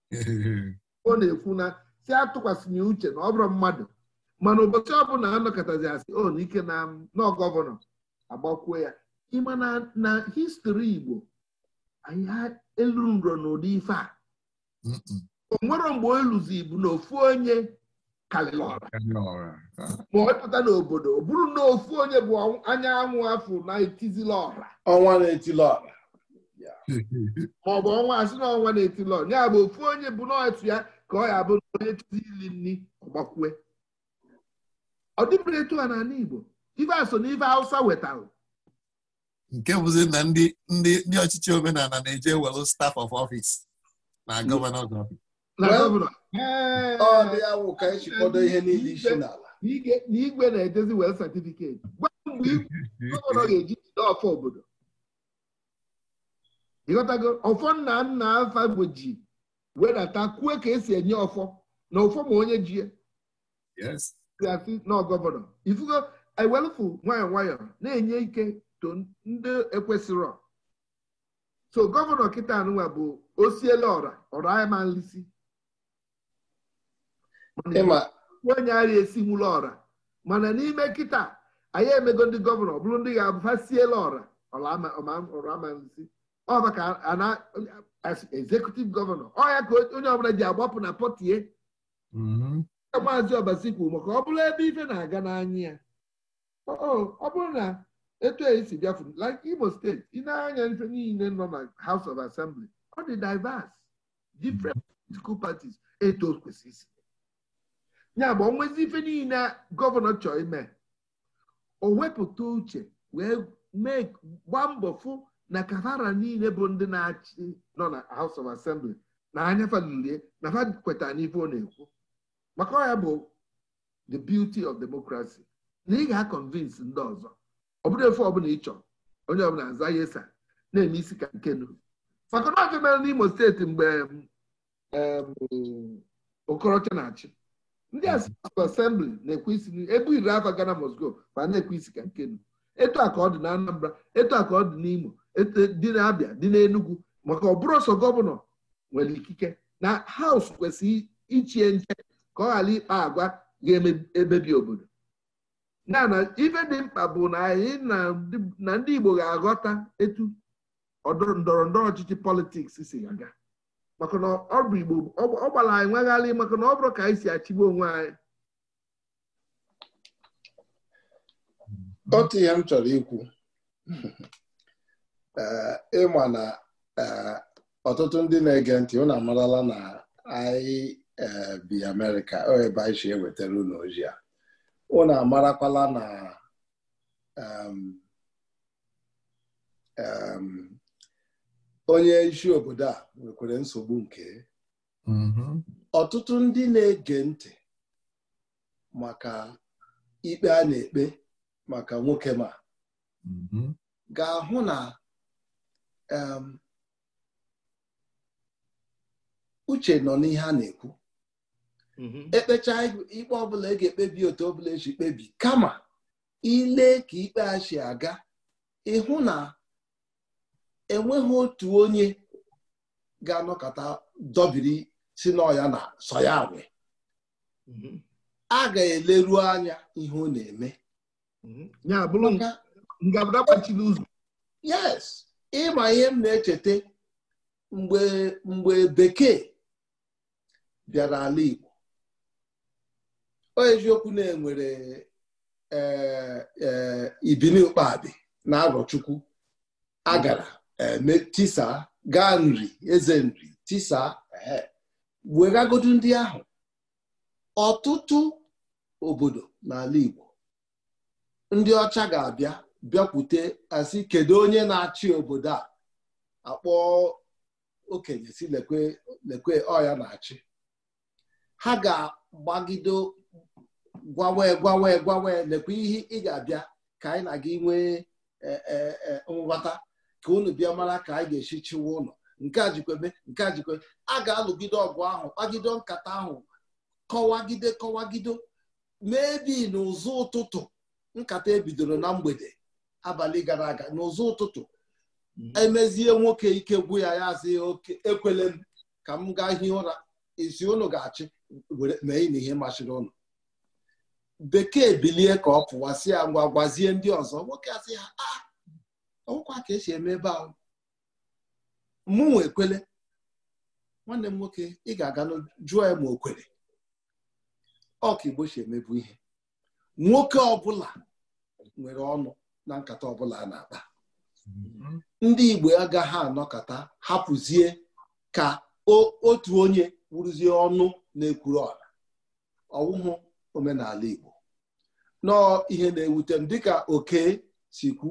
ọ na-ekwu na si atụkwasịnye uche na ọ bụrụ mmadụ mana ụbọchị ọbụla anọkọtazi asị o oh, ike na nọ gọvanọ agbakwuo ya ịma na histori Igbo anyị elu nrọ n'ụdị ife a o nwere mgbe o luzi bụ na ofu onye kalilora n'obodo ọ bụrụ na ofu onye bụ anyanwụ afọ na-etizila ọra ọnwa na-etili ọra ma ọ bụ ọnwa asị na ọnwa na-etili ya bụ ofu onye bụ n'otu ya ka ọ ya bụrụ onye tizi ili nri ọgbakwue ọ dịbụrụ etu a n'ala Igbo ife aso na ife Hausa wetara nke bụzi na ndị ọchịchị omenala na-eje welu staf of office na gọvanọ ọfis Eh, ọ dị e ihe niile n'ala na igwe na-edezi wel satifiketi gwa mgbe igwe ga-eji jide ọfọ obodo ịghọtago ọfọ nna nna afa gboji wedata kwue ka esi enye ọfọ na ọfọ ma onye jie asị na gọvanọ ifugo ewelfu nwayọọ nwayọọ na-enye ike to ndị ekwesịrọ so gọvanọ kịta anụnwa bụ osiele ọra ọra ayamalisi ma onye ara esiwula ọra mana n'ime nkịta anyị emego ndị gọvanọ bụrụ ndị ga-abụ ha siela ọra ọramanzi ọ maka executive gọvanọ ọya ka onye ọbụla ji agbapụ na pọtie mhm. maazị ọbasi kwuru maka ọ bụrụ ebe ife na-aga n'anya ya ọ bụrụ na etu esi bịafu like Imo steeti ị na-anya ife niile nọ na House of Assembly ọ dị diverse different political parties eto o kwesịrị isi ya bụ onwezi ife niile gọvanọ chọọ ime o wepụta uche wee mee gba mbọ fụ na kavara niile bụ ndị na-achị nọ na House of Assembly na anya falulie na fa kweta n'ife ọ na-ekwu maka ọ ya bụ the beauty of democracy na ị ga-akọnvinsi ndị ọzọ ọ bụrụ efe ọbụla ịchọ onye ọbụla aza ya esa na-eme isi ka nkenu maka na ọjọ mere n'Imo steeti mgbe okorocha na-achị ndị asịsụ asembli na-ekwe isi ebu iri afọ gana mosgo ma na-ekwe isi ka nkenu etu a ka ọ dị na Anambra etu a ka ọ dị n'Imo dị na-abịa dị n'Enugu maka ọ ọsọ gọvanọ nwere ikike na haus kwesịrị ichie nche ka ọ ghara ikpa agwa ga-emebi obodo na na ife dị mkpa bụ na anyị na ndị Igbo ga-aghọta etu ndọrọ ndọrọ ọchịchị politiks si aga maka na ọ bụ igbo ọ gbara anyị nwegharị maka na ọ bụrụ ka anyị si achịgbu onwe anyị otu ihe m chọrọ ikwu eh, ịma na eh, ọtụtụ ndị na-ege ntị unu amarala na anyị eh, bi amerịka ebe anyị si ewetara unu ozi a unu amarakwala na onye isi obodo a nwekwara nsogbu nke mm-hmm. ọtụtụ ndị na-ege ntị maka ikpe a na-ekpe maka nwoke ma mm-hmm. ga-ahụ na um, uche nọ n'ihe a na-ekwu mm-hmm. ekpecha ikpe ọbụla e ga-ekpebi otu ọbụla eji kpebi kama ile ka ikpe a si aga ịhụ na enweghị otu onye ga-anọkọta dọbiri si n'ọya na soya nwe mhm. a ga-eleru anya ihe ọ na-eme mhm. yes ịma ihe m na-echeta mgbe mgbe bekee bịara ala Igbo o eziokwu na-enwere eh, eh, ibini ụkpabi na arọchukwu agara Eh, tisa gaa nri eze nri tisa eh, wegagodu ndị ahụ ọtụtụ obodo n'ala Igbo ndị ọcha ga-abịa bịakwute asị kedu onye na-achị obodo a akpọ okenye si lekwe lekwe ọya na-achị ha ga-agbagido gwawe gwawe gwawe lekwe ihe ị ga-abịa ka anyị na gị nwee eh, nghọta ka unu bịa mara ka anyị ga-esi chiwa ụlọ nke a jikwebe nke a jikwebe a ga-alụgide ọgụ ahụ kpagide nkata ahụ kọwagide kọwagido ebi n'ụzọ ụtụtụ nkata ebidoro na mgbede abalị gara aga n'ụzọ ụtụtụ mhm. emezie nwoke ike gwu ya ya azị oke ekwele m ka m gaa hie ụra isi unu ga-achị mee na ihe machiri ụlọ bekee bilie ka ọ pụwa si ya ngwa gwazie ndị ọzọ nwoke asị ha a ọgwụkwa ka esi eme ebe ahụ mụnwa ekwele nwanne m nwoke ị ga-aga jụọ ya ma o kwere ọ ka igbo si emebu ihe nwoke ọbụla nwere ọnụ na nkata ọbụla a na-akpa ndị igbo agaghị anọkọta hapụzie ka otu onye wụrụzie ọnụ na-ekwuru ọla ọwụhụ omenala igbo nọọ ihe na-ewute m dịka oke si kwu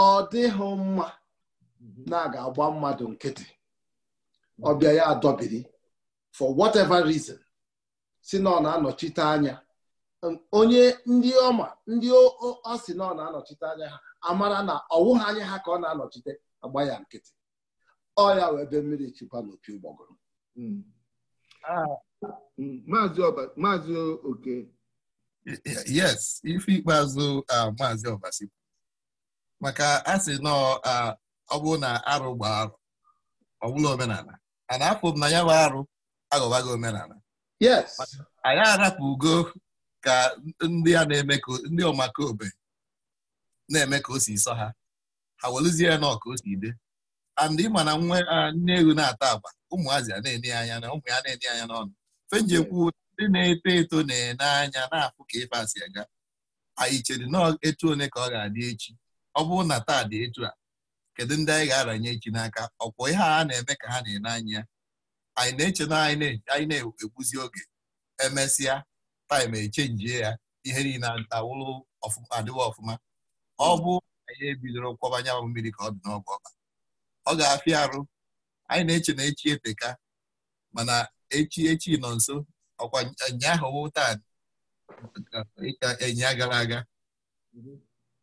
ọ dịghị mma mhm. na ga-agba mmadụ nkịtị mhm. ọbịa ya adọbiri for whatever reason si na ọ na-anọchite anya um, onye ndị ọma ndị ọ sị na ọ na-anọchite anya ha amara na ọwụghị anya ha ka ọ na-anọchite agba ya nkịtị ọ ya wee be mmiri chụkwa n'opi ụgbọgụrụ mm. Ah. Mm, maazị oke yes ife ikpeazụ ah, maazị ọbasi maka a sị nọ ọ bụrụ na arụ gba arụ ọbụla omenala a na afụ m na ya bụ arụ gị omenala anyị arapụ ugo ka ndị a na-eme ka ndị ọmakaobe na-eme ka o si sọ ha ha welụzie ya na ọka o si ide andị ịma na nne ewu na-ata agba ụmụazị a na-enye anya na ụmụ ya na-enye anya n'ọnụ fenjekwu ndị na-eto eto na-ene anya na-afụ ka ife si aga anyị chere na etu one ka ọ ga-adị echi ọ bụrụ na taa dị etu a kedu ndị anyị ga-aranye echi n'aka ọkwọ ihe a na-eme ka ha na-ele anya anyị na-eche na anyị na-egbuzi oge emesịa taim echenjie ya ihe niile awụrụ adịwa ọfụma ọ bụ anyị ebidoro kwọbanya anyanwụ mmiri ka ọ dị n'ọgụ ọba ọ ga-afịa arụ anyị na-eche na echi eteka mana echi echi nọ nso ọkwa ụnyaahụ taa ịka enya gara aga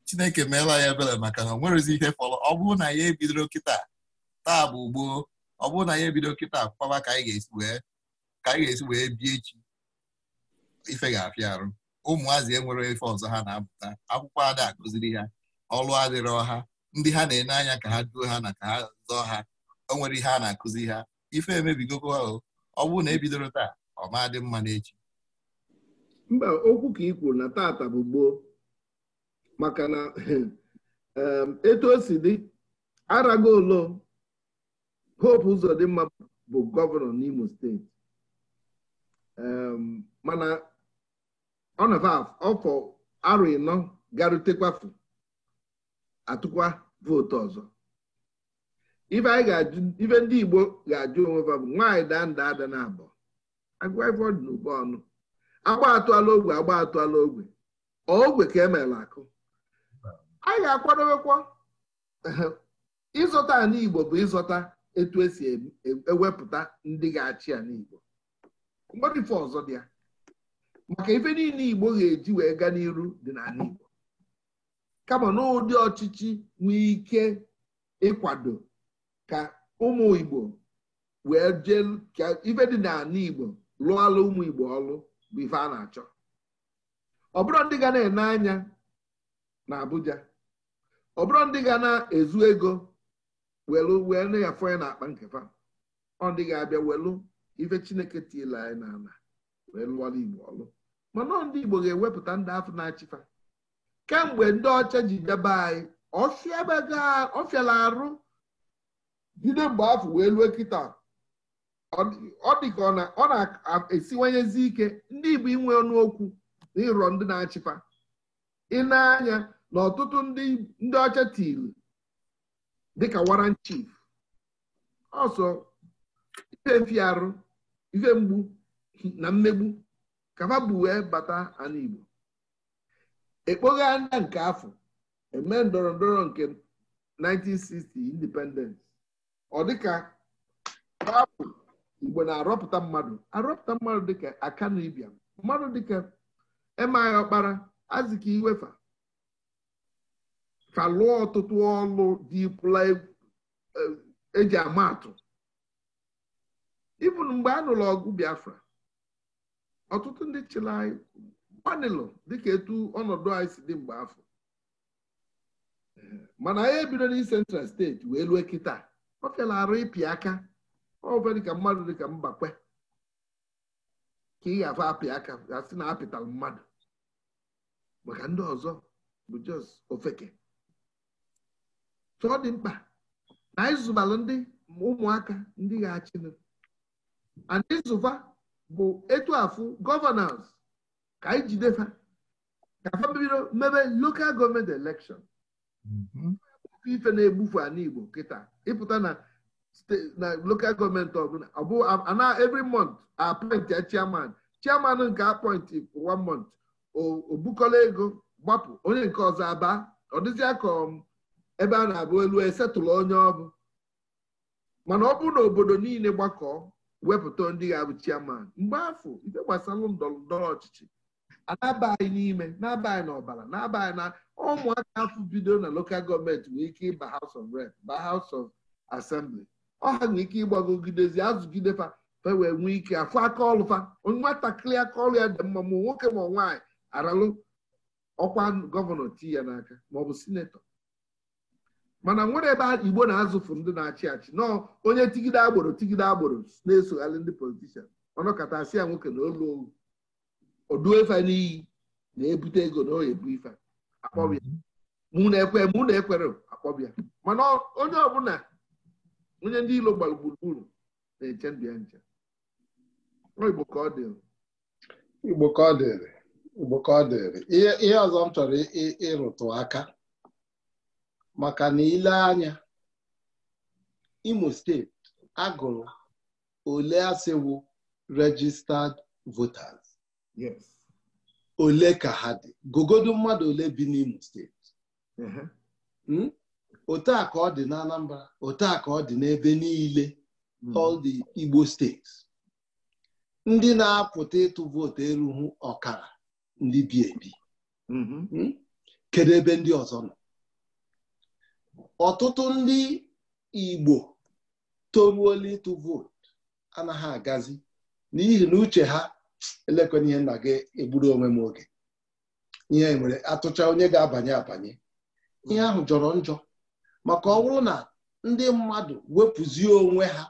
chineke meela ya ebere maka na ọ ihe fọrọ ọ bụrụ na ya ebidoro kịta taa bụ ugbo ọ bụrụ na ya ebido kịta kpaba ka anyị ga-esi wee anyị ga-esi bie echi ife ga-afịa arụ ụmụazị enwere ife ọzọ ha na-apụta akwụkwọ ada akụziri ha ọrụ adịrị ọha ndị ha na-ene anya ka ha duo ha na ka ha zọọ ha o nwere ihe a na-akụzi ha ife emebigokwa ha ọ bụrụ na ebidoro taa ọ ma dị mma n'echi mba okwu ka i kwuru na taata bụ gboo maka na etu o si dị Aragolo Hope Uzodimma bụ gọvanọ n'Imo steeti mana ọ na-afụ ọfọ arọ ịnọ garutekwafu atụkwa vootu ọzọ ife ndị Igbo ga-ajụ onwe ha bụ nwaanyị daa nda ada na abụọ agụifọdụ n'ụba ọnụ agba atụala ogwe agba atụala ogwe ogwe ka emeela akụ anyị ga akwadowekwa ịzọta ala Igbo bụ ịzọta etu esi e, e, ewepụta ndị ga-achị ala Igbo ife ọzọ dị ya maka ife niile Igbo ga-eji wee gaa n'iru dị n'ala Igbo kama n'ụdị ọchịchị nwee ike ịkwado ka ụmụ Igbo wee jee ka ife dị n'ala Igbo lụọla ụmụ Igbo ọlụ bụ ife a na-achọ ọ bụrụ ndị ga na-ene anya na Abuja ọ bụrụ ndị ga na-ezu ego welu wee na-afọ ya n'akpa nkefa ọ dịghị ga-abịa welu ife chineke tiela anyị n'ala wee lụọla igbo ọlụ mana ndị igbo ga-ewepụta ndị afọ na-achịfa kemgbe ndị ọcha ji bịaba anyị ọfịala arụ jide mgbe afọ wee lue kịta ọ dị ka ọ na-esiwanyezi ike ndị igbo inwe ọnụ okwu na ịrọ ndị na-achịfa ị na-anya na ọtụtụ ndị ọcha tiri dịka waran chief ọsọ ife mfiarụ ife mgbu na mmegbu kafa bụ wee bata ala Igbo ekpoghe anya nke afọ eme ndọrọ ndọrọ nke 1960 independence ọ dịka babụ Igbo na-arọpụta mmadụ arọpụta mmadụ dịka akanibia mmadụ dịka Emeaghi Ọkpara Azikiwe Iwefa ka lụọ ọtụtụ ọlụ dị pụla eji e, e ama atụ ibụn mgbe a nụrụ ọgụ biafra ọtụtụ ndị chịrị anyị gbanịlụ dịka etu ọnọdụ anyị si dị mgbe afọ mana anyị ebido na central steeti wee lue kịta ọ fela arụ ịpị aka ọfe dịka mmadụ dịka mbakwe ka ị ga-afa apị aka gasị na apịtala mmadụ maka ndị ọzọ bụ jos ofeke so ọ dị mkpa na anyị ndị ụmụaka ndị ga-achịnụ and ịzụva bụ etu afụ gọvanọns ka anyị jidefa ka fa bido mebe lokal gọọmenti elekshọn mhm. ife na-egbufu ala Igbo kịta ịpụta na na lokal gọọmenti ọbụla ọbụ ana every month appoint ya chairman chairman nke appoint for one month o bukọla ego gbapụ onye nke ọzọ aba ọ dịzịa ka um, ebe a na-abụ elu esetụlụ onye ọbụ mana ọ bụrụ na obodo niile gbakọọ wepụta ndị ga-abụ chiaman mgbe afọ ife gbasara ndọrọ ndọrọ ọchịchị anabaghị n'ime na-abaghị n'ọbara na-abaghị na ụmụaka afọ bido na lokal gọọmenti nwee ike ịba House of Rep ba House of Assembly ọ ha nwee ike ịgbagogidezi azụgidefa fe wee nwee ike afọ aka ọlụfa nwatakịrị aka ọrụ ya dị mma ma nwoke ma nwaanyị aralụ ọkwa gọvanọ tii ya n'aka maọbụ sinetọ mana nwere ebe igbo na-azụfu ndị na-achị achị na onye tigide agboro tigide agboro na-esogharị ndị politishan ọnọkatasị ya nwoke na olu odu efe n'iyi na-ebute ego na oyi ife akpọbịa mụ na-ekwe mụ na-ekwere akpọbịa mana onye ọbụla onye ndị ilo gbara gburugburu na-eche ndụ ya nche igbo ka ọ igbo ka ọ dịrị ihe ọzọ m chọrọ ịrụtụ aka maka na ile anya Imo steeti agụrụ ole asịwụ registered voters ole ka ha dị gogodo mmadụ ole bi n'Imo steeti hmm? otu a ka ọ dị n'Anambra otu a ka ọ dị n'ebe niile hmm. all the Igbo steeti ndị na-apụta ịtụ vootu erughị ọkara ndị bi ebi mm-hmm. hmm? kedu ebe ndị ọzọ nọ ọtụtụ ndị Igbo toruola ịtụ vootu anaghị agazi n'ihi na uche ha elekwana ihe nna gị egburu onwe m oge ihe nwere e atụcha onye ga-abanye abanye ihe ahụ jọrọ njọ maka ọ bụrụ na ndị mmadụ wepụzie onwe ha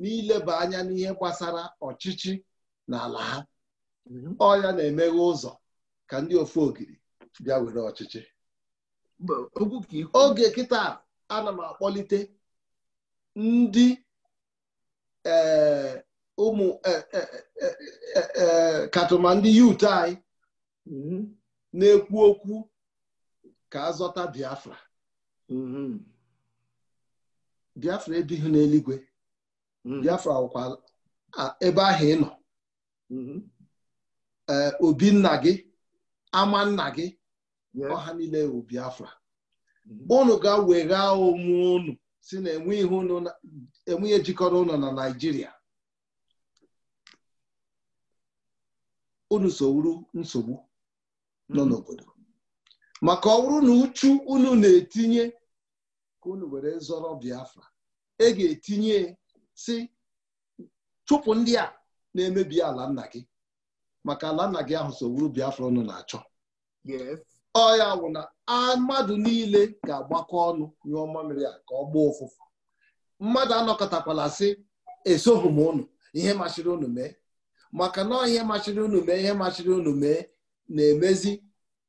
n'ileba anya n'ihe gbasara ọchịchị na ala ha mhm. ọ na-emeghe ụzọ ka ndị ofu ogiri bịa were ọchịchị oge kịta ana m akpọlite ndị e, ụmụ e, e, katụma ndị yut anyị mm-hmm. na-ekwu okwu ka azọta Biafra mm-hmm. Biafra ebighị n'eluigwe mm-hmm. Biafra ọkwa ebe ahụ ị nọ obi nna gị ama nna gị ọha niile Biafra unu ga-wegha onwe unu si na enweghị ejikọrọ ụlọ na Naịjirịa unu sowuru nsogbu nọ mm-hmm. n'obodo maka ọ bụrụ na uchu unu na-etinye ka unu were zọrọ Biafra e ga-etinye si chụpụ ndị a na-emebi ala nna gị maka ala nna gị ahụ sowuru Biafra unu na-achọ ọya wụ na mmadụ niile ga-agbakọ ọnụ nyụọ mmamịrị a ka ọ gbaa ụfụfụ mmadụ anọkọtakwala sị esoghị m ụnụ ihe machiri unu mee maka na ihe machiri unu mee ihe machiri unu mee na-emezi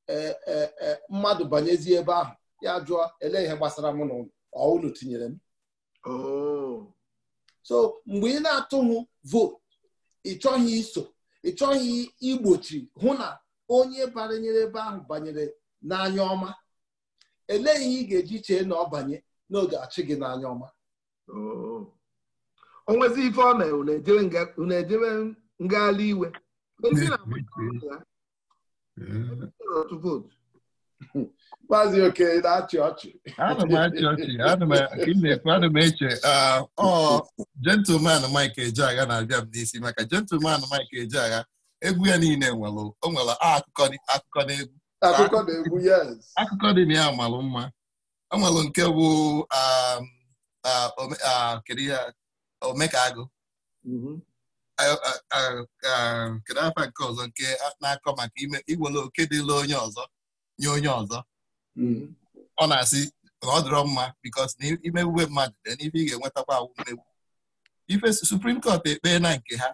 e, e, e, mmadụ banyezi ebe ahụ ya jụọ ele ihe gbasara m na ọ unu tinyere m oh. so mgbe ị na atụhụ votu ị chọghị iso ị igbochi hụ na onye banyere ebe ahụ banyere n'anya ọma elee ihe ị ga-eji chee na ọ banye n'oge achị gị n'anya ọma onwezi oh. ife ọ na-ejebe ngagharị iwe hmm. hmm. Maazị Oke na-achị ọchị ana m eche ah, ọ gentleman Mike Ejeagha na-abịa m n'isi maka gentleman Mike Ejeagha egwu ya niile nwere o nwere akụkọ na egwu akụkọ dị na ya malụ mma o nwere nke bụ um, omekagụ mm-hmm. kedu afa nke ọzọ nke na-akọ maka ime iwere oke dịla onye ọzọ nye onye ọzọ mm-hmm. ọ na-asị na ọ dịrọ mma bikos na imewube mmadụ dị n'ife ị ga-enwetakwa awụ ife suprim kọt ekpee na nke ha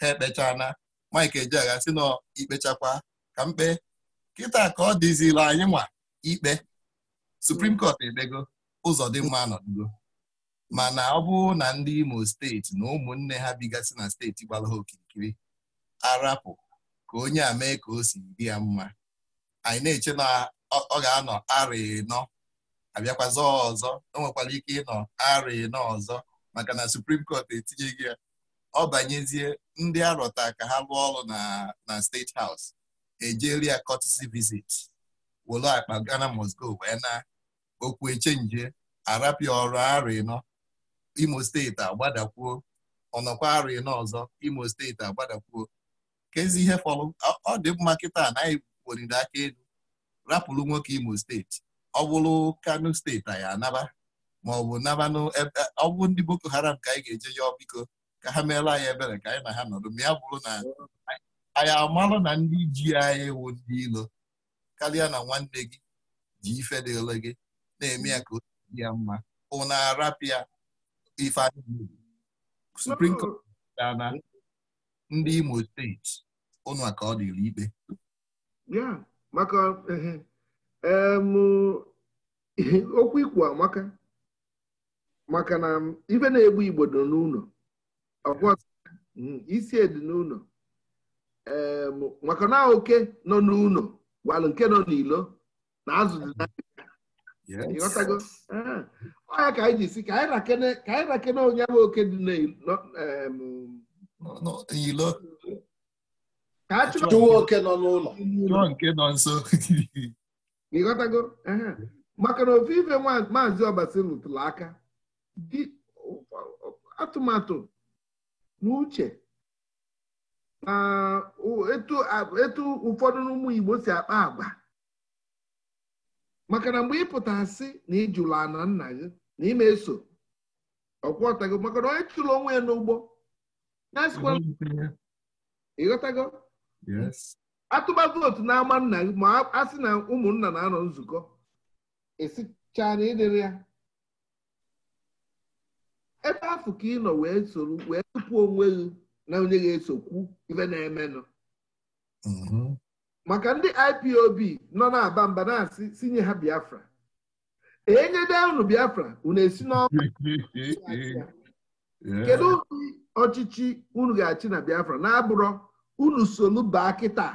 ha ekpechaa na Mike Ejeagha sị nọ ikpechakwa ka mkpe kịta ka ọ dịzila anyị nwa ikpe Supreme Court edego ụzọ dị mma nọdugo mana ọ bụrụ na ndị Imo steeti na ụmụnne ha bigasị na steeti gbara ha okirikiri arapụ ka onye a mee ka o si dị ya mma anyị na-eche na ọ ga-anọ arịnọ nọ abịakwazọ ọzọ o nwekwara ike ịnọ arịnọ nọ ọzọ maka na Supreme Court etinyeghị ya ọ banyezie ndị arọta ka ha rụọ ọrụ na na steeti haus ejeria courtesy visit wolo akpa Ghana must go wee na okwu echenje arapịa ọrụ arọ ịnọ imo steeti agbadakwuo ọnọkwa arọ ịnọ ọzọ imo steeti agbadakwuo kezi ihe fọrọ ọ dị mma kịta anaghị weriri aka elu rapụrụ nwoke imo steeti ọ bụrụ kano steeti ya anaba maọbụ nabanụ bụ ọ bụ ndị boko haram ka anyị ga-eje ya biko ka ha meela anyị ebere ka anyị na ha nọdụ ma ya bụrụ na anyị amalụ na ndị ji anyị wụ ndị ilo karịa na nwanne gị ji ife dị ole gị na-eme ya ka o dị ya mma ụna arapịa ife anyị Supreme Court na ndị Imo steeti ụnụ ka ọ dịrị ikpe maka okwu ikwu amaka maka na ife na-egbu Igbo n'ụlọ isi dị n'ụlọ maka na oke nọ n'ụlọ gwalụ nke nọ n'ilo na azụ dị n'ahịa ọya ah. ka anyị ji si ka anyị rakene onye bụ oke dị n'ilo ka a chụwa oke nọ n'ụlọ nke nọ nso ịghọtago ah. maka na ofe ife maazị ọbasi rụtụrụ aka atụmatụ n'uche na etu ụfọdụ n'ụmụ Igbo si akpa agba, maka na mgbe ịpụta asị na ịjụla ana nna gị na ime eso ọkwọta maka na onye chụrụ onwe ya n'ugbo ịghọtago atụba vootu n'ama nna gị ma a sị na ụmụnna na-anọ nzukọ esicha na ịdịrị ya ebe afọ ka ị nọ wee soro wee tupu onwe gị na onye ga-esokwu ife na-emenụ mhm. maka ndị IPOB nọ na-aba mba na-asị sinye ha Biafra enyede unu Biafra unu esi n'ọkụ kedu ụdị ọchịchị unu ga-achị na Biafra na-abụrọ unu solu baa kịta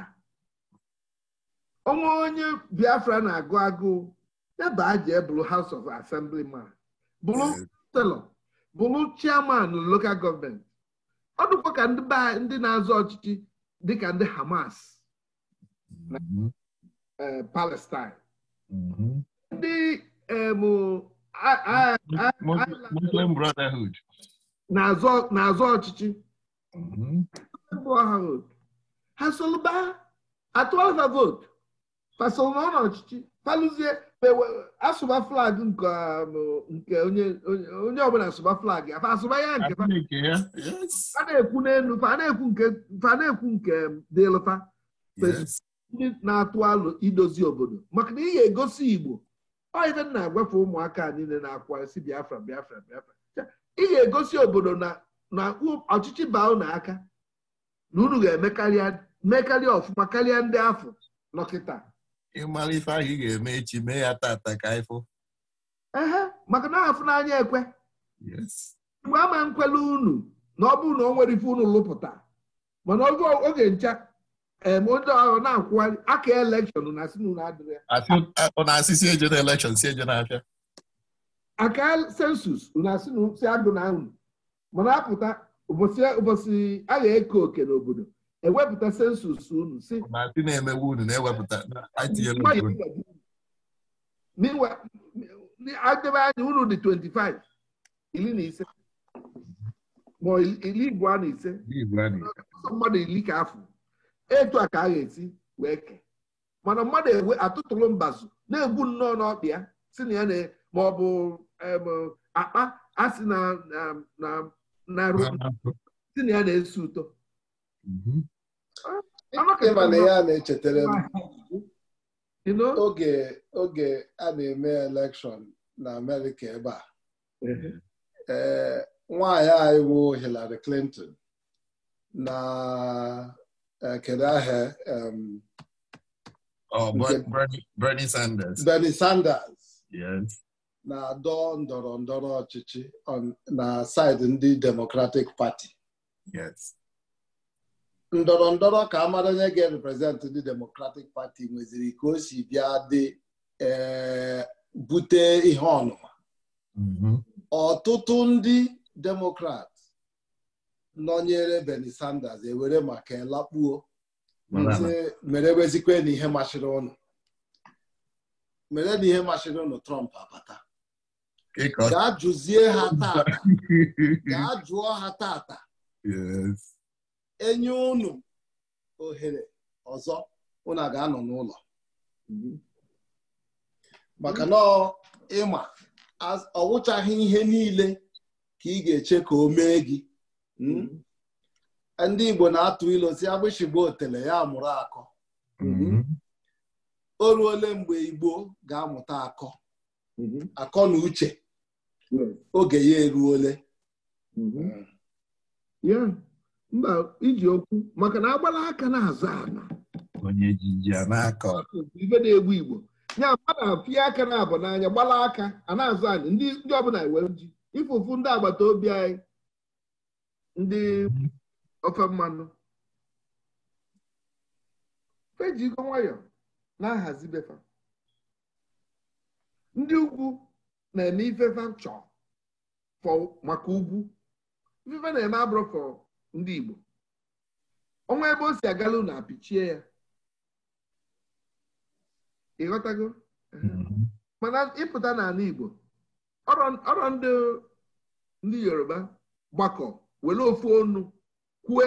onwe onye Biafra na-agụ agụụ ebe a ji ebụrụ House of Assembly ma bụrụ telọ bụrụ chairman local gọọmenti ọ dịkwa ka ndị ndị na-azọ ọchịchị dịka ndị Hamas na Palestine ndị Muslim Brotherhood na-azọ ọchịchị mhm. ha solụba atụ ọha votu pasonwe ọchịchị palụzie asụba flag nke um, nke onye ọbụla asụba flag ya asụba ya nke a na-ekwu n'elu fa na-ekwu nke dịlụfa ndị na-atụ alụ idozi obodo maka na ị ga-egosi igbo oive na-agwafe ụmụaka niile na-akwa si biafra biafra biafra ị ga-egosi obodo na ọchịchị baa unu aka na unu ga-emekarịa mekarịa ọfụma karịa ndị afọ nọkịta ịmara ife ahụ ị ga-eme echi mee ya tata ka ifo ehe maka na afụ n'anya ekwe mgbe ama nkwele unu na ọ bụrụ na o nwere ife unu lụpụta mana oge ncha onye ọrụ na-akwụgharị aka elekshọn na asị si eje na na-abịa aka sensus unu asị si agụ na unu mana apụta ụbọchị a ga-eke òkè n'obodo ewepụta sensus unu si na-emewe unu na-ewepụta adebe anya unu dị 25 ili na ise ma iri igbo na ise mmadụ iri ka afọ etu a ka a ga-esi wee kee mana mmadụ ewe atụtụrụ mbazụ na-egbu nnọọ n'ọkpa si na ya ma ọ bụ akpa asị na ya na-esi ụtọ Mm-hmm. Ah, ịma na ya na-echetara m oge oge a na-eme elekshọn na amerịka ebe a mm-hmm. eh, nwaanyị anyị Hillary Clinton na eh, kedu ahịa oh, Bernie Sanders Bernie Sanders na-adọ ndọrọ ndọrọ ọchịchị na saịdị ndị Democratic Party ndọrọ ndọrọ ka mara onye ga-reprezentị ndị Democratic Party nweziri ka o si bịa dị eh, bute ihe ọnụma mm-hmm. ọtụtụ ndị Democrat nọnyere Bernie Sanders ewere maka elakpuo mere wezikwe na ihe machiri ụnụ mere na ihe machiri ụnụ Trump abata ga jụzie ha taata. gaa jụọ ha tata enye unu ohere ọzọ unu ga-anọ n'ụlọ maka na ịma ọwụchaghị ihe niile ka ị ga-eche ka o mee gị hmm? ndị Igbo na-atụ ilo si agbịsị otele ya mụrụ akọ hmm? o ruole mgbe Igbo ga-amụta akọ hmm? akọ na uche oge ya eruole mba iji okwu maka na agbala aka na-aza ana ife na-egbu igbo nya mmadụ apịa aka na-abụ n'anya gbala aka a na-azụ anyị ndị ọbụla iwe e ji ifufu ndị agbata obi anyị ndị ofe mmanụ fejigo nwayọ na-ahazi befa ndị ugwu na-eme ifefe chọọ maka ugwu ifefe na-eme abụrụ ndị Igbo ọnwa ebe o si agala unu apịchie ya ịghọtago mm-hmm. mana ịpụta n'ala Igbo ọrọ ndị Yoruba gbakọ were ofu ọnụ kwue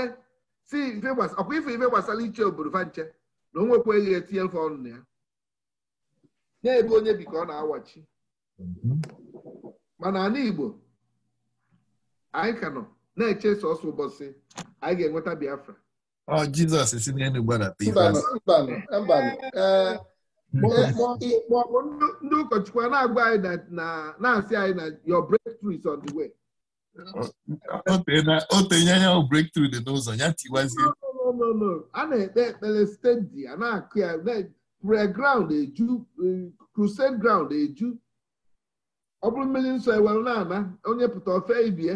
si ọkwa ife ife gbasara iche obodo fanche nche na o nwekwaghị etinye mfe ọnụ na ya na-ebe onye bi ka ọ na-awachi mm-hmm. mana ala Igbo anyị ka nọ na-eche sọsọ ụbọchị anyị ga-enweta Biafra Jizọs si n'elu gbadata ndị ụkọchukwu a na-agwa anyị na-asị anyị na your breakthrough is on the way o tenye ya breakthrough dị n'ụzọ ya tiwazie a na-ekpe ekpere stendi a na-akụ ya preground eju crusade ground eju ọ bụrụ mmiri nsọ ewere na-ana onye pụta ofe ibie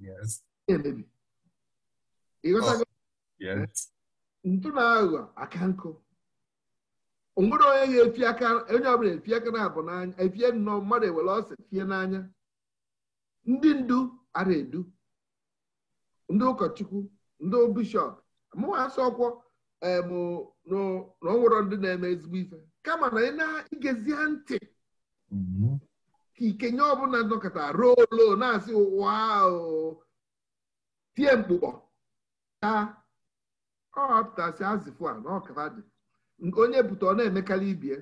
Yes. Entende? E outra oh, coisa. Yes. Ntụ na aghụghọ aka nkụ. Onwere onye ga-efi aka onye ọbụla efi aka na-abụ n'anya efie nnọọ mmadụ ewere ọsọ fie n'anya. Ndị ndu ara edu. Ndị ụkọchukwu, ndị bishọp, mụwa asọ ọkwọ bụ na onwere ndị na-eme ezigbo ife kama na ị na ha ntị ka ikenye ọbụla nọkọta ruo olo na-asị ụwa tie mkpụkpọ ya. Ọ ọpụtasị azịfụ a n'ọkara dị onye bute ọ na-emekarị ibie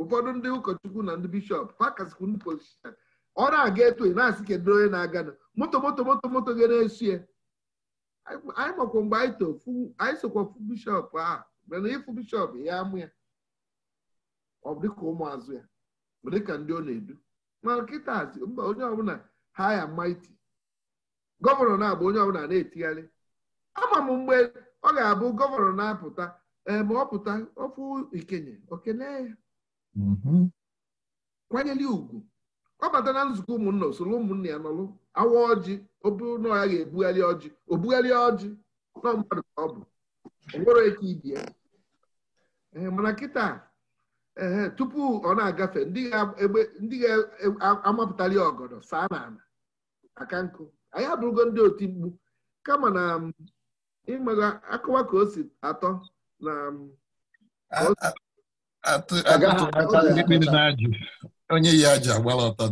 ụfọdụ ndị ụkọchukwu na ndị bishọp pakasịkwu ndị pozishan ọ na-aga etu na-asị kedu onye na-aga moto moto moto moto ga na esu ya. anyị makwa mgbe anyị sokwa fụ bishọp ahụ mana ịfụ bishọp ya amụ ya ọ bụ dịka ụmụazụ ya bụ dịka ndị ọ na-edu ma nkịta mba onye ọbụla ha ya maiti gọvanọ na-agba onye ọbụla na-etigharị ama m mgbe ọ ga-abụ gọvanọ na-apụta ee eh, ma ọ pụta ofu ikenye okene ya mm-hmm. kwanyere ugwu ọ bata na nzukọ ụmụnna usoro ụmụnna ya nọlụ awa ọjị oburu na ya ga-ebugharị ọjị obugharị ọjị na mmadụ ka ọ bụ onwere ike ibi ya eh, mana nkịta ee tupu ọ na-agafe ndị ga-amapụtali e, ọgọdọ saa n'ala aka nkụ anyị abụrụgo ndị otu mkpu kama na um, ịmaga akụwa ka o si atọ na um, onye ya ji agbara ọtọ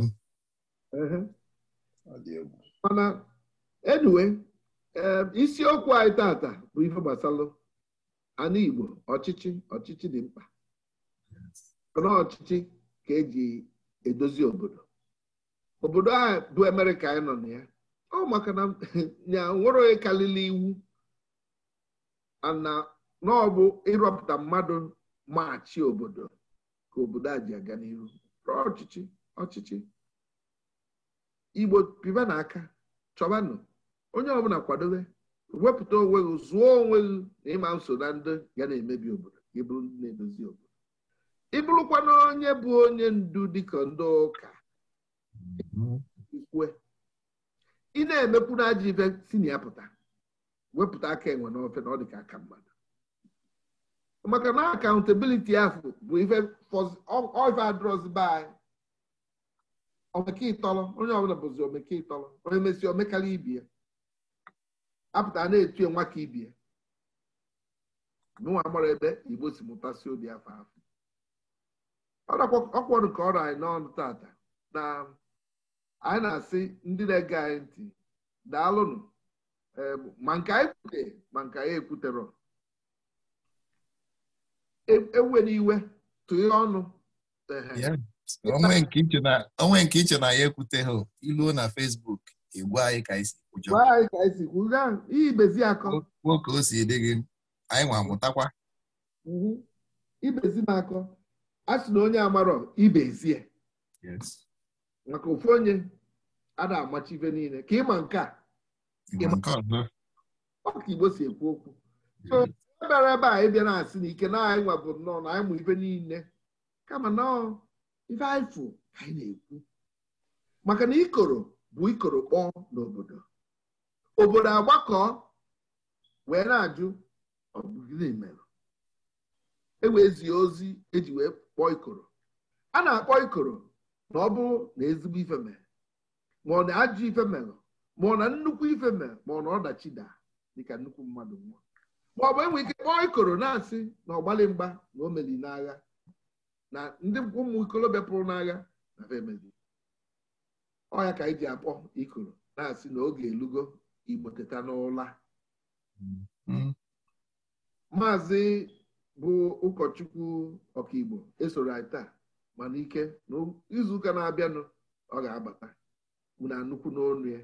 mana enwe um, isiokwu anyị tata bụ ihe gbasara anụ Igbo ọchịchị ọchịchị dị mkpa ọchịchị ka eji edozi obodo obodo a bụ Amerịka anyị nọ na ya ọ maka na ya nwere onye karịrị iwu ana na ọ bụ ịrọpụta mmadụ maachị obodo ka obodo a ji aga n'ihu ọchịchị ọchịchị igbo piba n'aka chọbanụ onye ọbụla kwadobe wepụta onwe gị zụọ onwe gị na ịma nso na ndị ya na-emebi obodo ịbụrụ ndị na-edozi obodo ịbụrụkwana onye bụ onye ndu dịka ndị ụka ikwe ị na-emepụ na ajọ ife si na ya pụta wepụta aka enwe n'ofe na ọ dịka aka mmadụ maka na akaụntabiliti ahụ bụ ife adrọzba anyị omeke onye ọbụla bụzi omeke ịtọrọ onye mesi omekara ibie apụta na-etu nwa ka ibie n'ụwa gbara ebe igbo si mụtasị obi afọ afọ ọkwọrụ ka ọ rọ anyị n'ọnụ tata na anyị na-asị ndị na-ege anyị ntị daalụnụ ma nke anyị kwute ma nke anyị ekwuterọ e, ewere iwe tụghe ọnụ onwe nke iche na ya ekwuteghị iluo na fesbuk igwe e anyị ka isi kwujọ ibezi akọ nwoke o si dị gị anyị nwa mụtakwa mhm. ibezi m akọ a sị na onye amarọ ibe ezie maka ofu onye a na-amachi ibe niile ka ịma nke a ọka igbo si ekwu okwu so ebere ebe a ịbịa na-asị na ike na anyị nwa nnọọ na anyị mụ ibe niile kama nọọ ife anyị fụ anyị na-ekwu maka na ikoro bụ ikoro kpọọ n'obodo obodo agbakọ wee na-ajụ ọ bụ gịnị mere e wezie ozi eji wee kpọọ ikoro a na-akpọ ikoro na ọ bụ na ezigbo ife mere ma ọ na-ajụ ife mere ma ọ na nnukwu ife mere ma ọ na ọdachi daa dịka nnukwu mmadụ nwa ma ọ bụ enwe ike kpọọ ikoro na-asị na ọgbalị mgba na o meli n'agha na ndị ụmụ ikolobịa pụrụ n'agha na femeli ọya ka anyị ji akpọ ikoro na-asị na oge elugo igbo teta n'ụla mm-hmm. maazị bụ ụkọchukwu ọkaigbo esoro anyị taa mana ike na na-abịanụ ọ ga-abata na nnukwu n'onu ya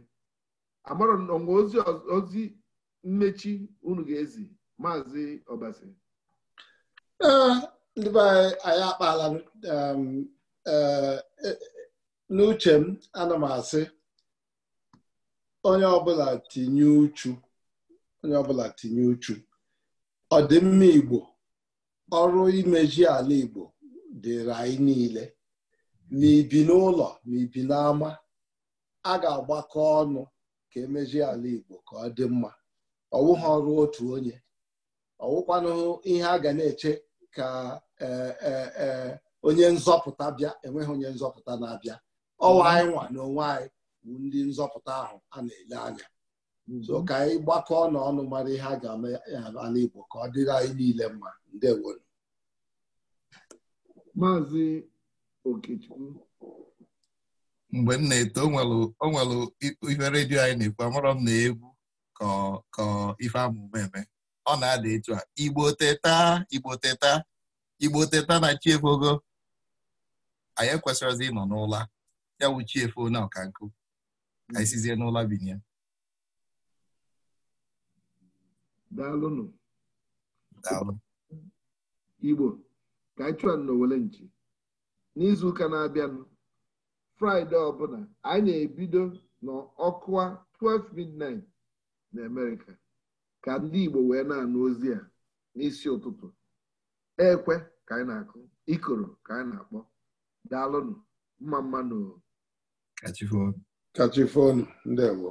amarọ nwa ozi ozi mmechi unu ga-ezi maazị ọbasi ndị be anyị akpala um, e, e, n'uche m ana m asị onye ọbụla tinye uchu onye ọbụla tinye uchu ọdịmma igbo ọrụ imeji ala Igbo dịrị anyị niile na ibi n'ụlọ na ibi n'ama a ga-agbakọ ọnụ ka emeji ala Igbo ka ọ dị mma Ọ wụghị ọrụ otu onye wụkwanụ ihe a ga na-eche ka e, e, e, onye nzọpụta bịa enweghị onye nzọpụta na-abịa ọwa anyị nwa na onwe bụ ndị nzọpụta ahụ a na-ele anya Mhm. so ka anyị gbakọọ na ọnụ mara ihe a ga-eme ala Igbo ka ọ dịrị anyị niile mma ndewo maazị Okechukwu mgbe m na-eto o nwere ife redio anyị na-ekwu amarọ m na egwu ka ife amụma eme ọ na-ada etu a Igbo teta Igbo teta Igbo teta na chiefogo anyị ekwesịrịzi ịnọ n'ụla ya wụ chiefu na ọkankụ anyị sizie n'ụla binye daalụnụ igbo ka anyị chụọ n'owele nchi n'izu ụka na-abịanụ fraịde ọbụla anyị na-ebido n'ọkụwa 12 midnight na amerịka ka ndị igbo wee na-anụ ozi a n'isi ụtụtụ ekwe ka anyị na-akụ ikoro ka anyị na-akpọ daalụnụ mma mma kachifon kachifonu ndewo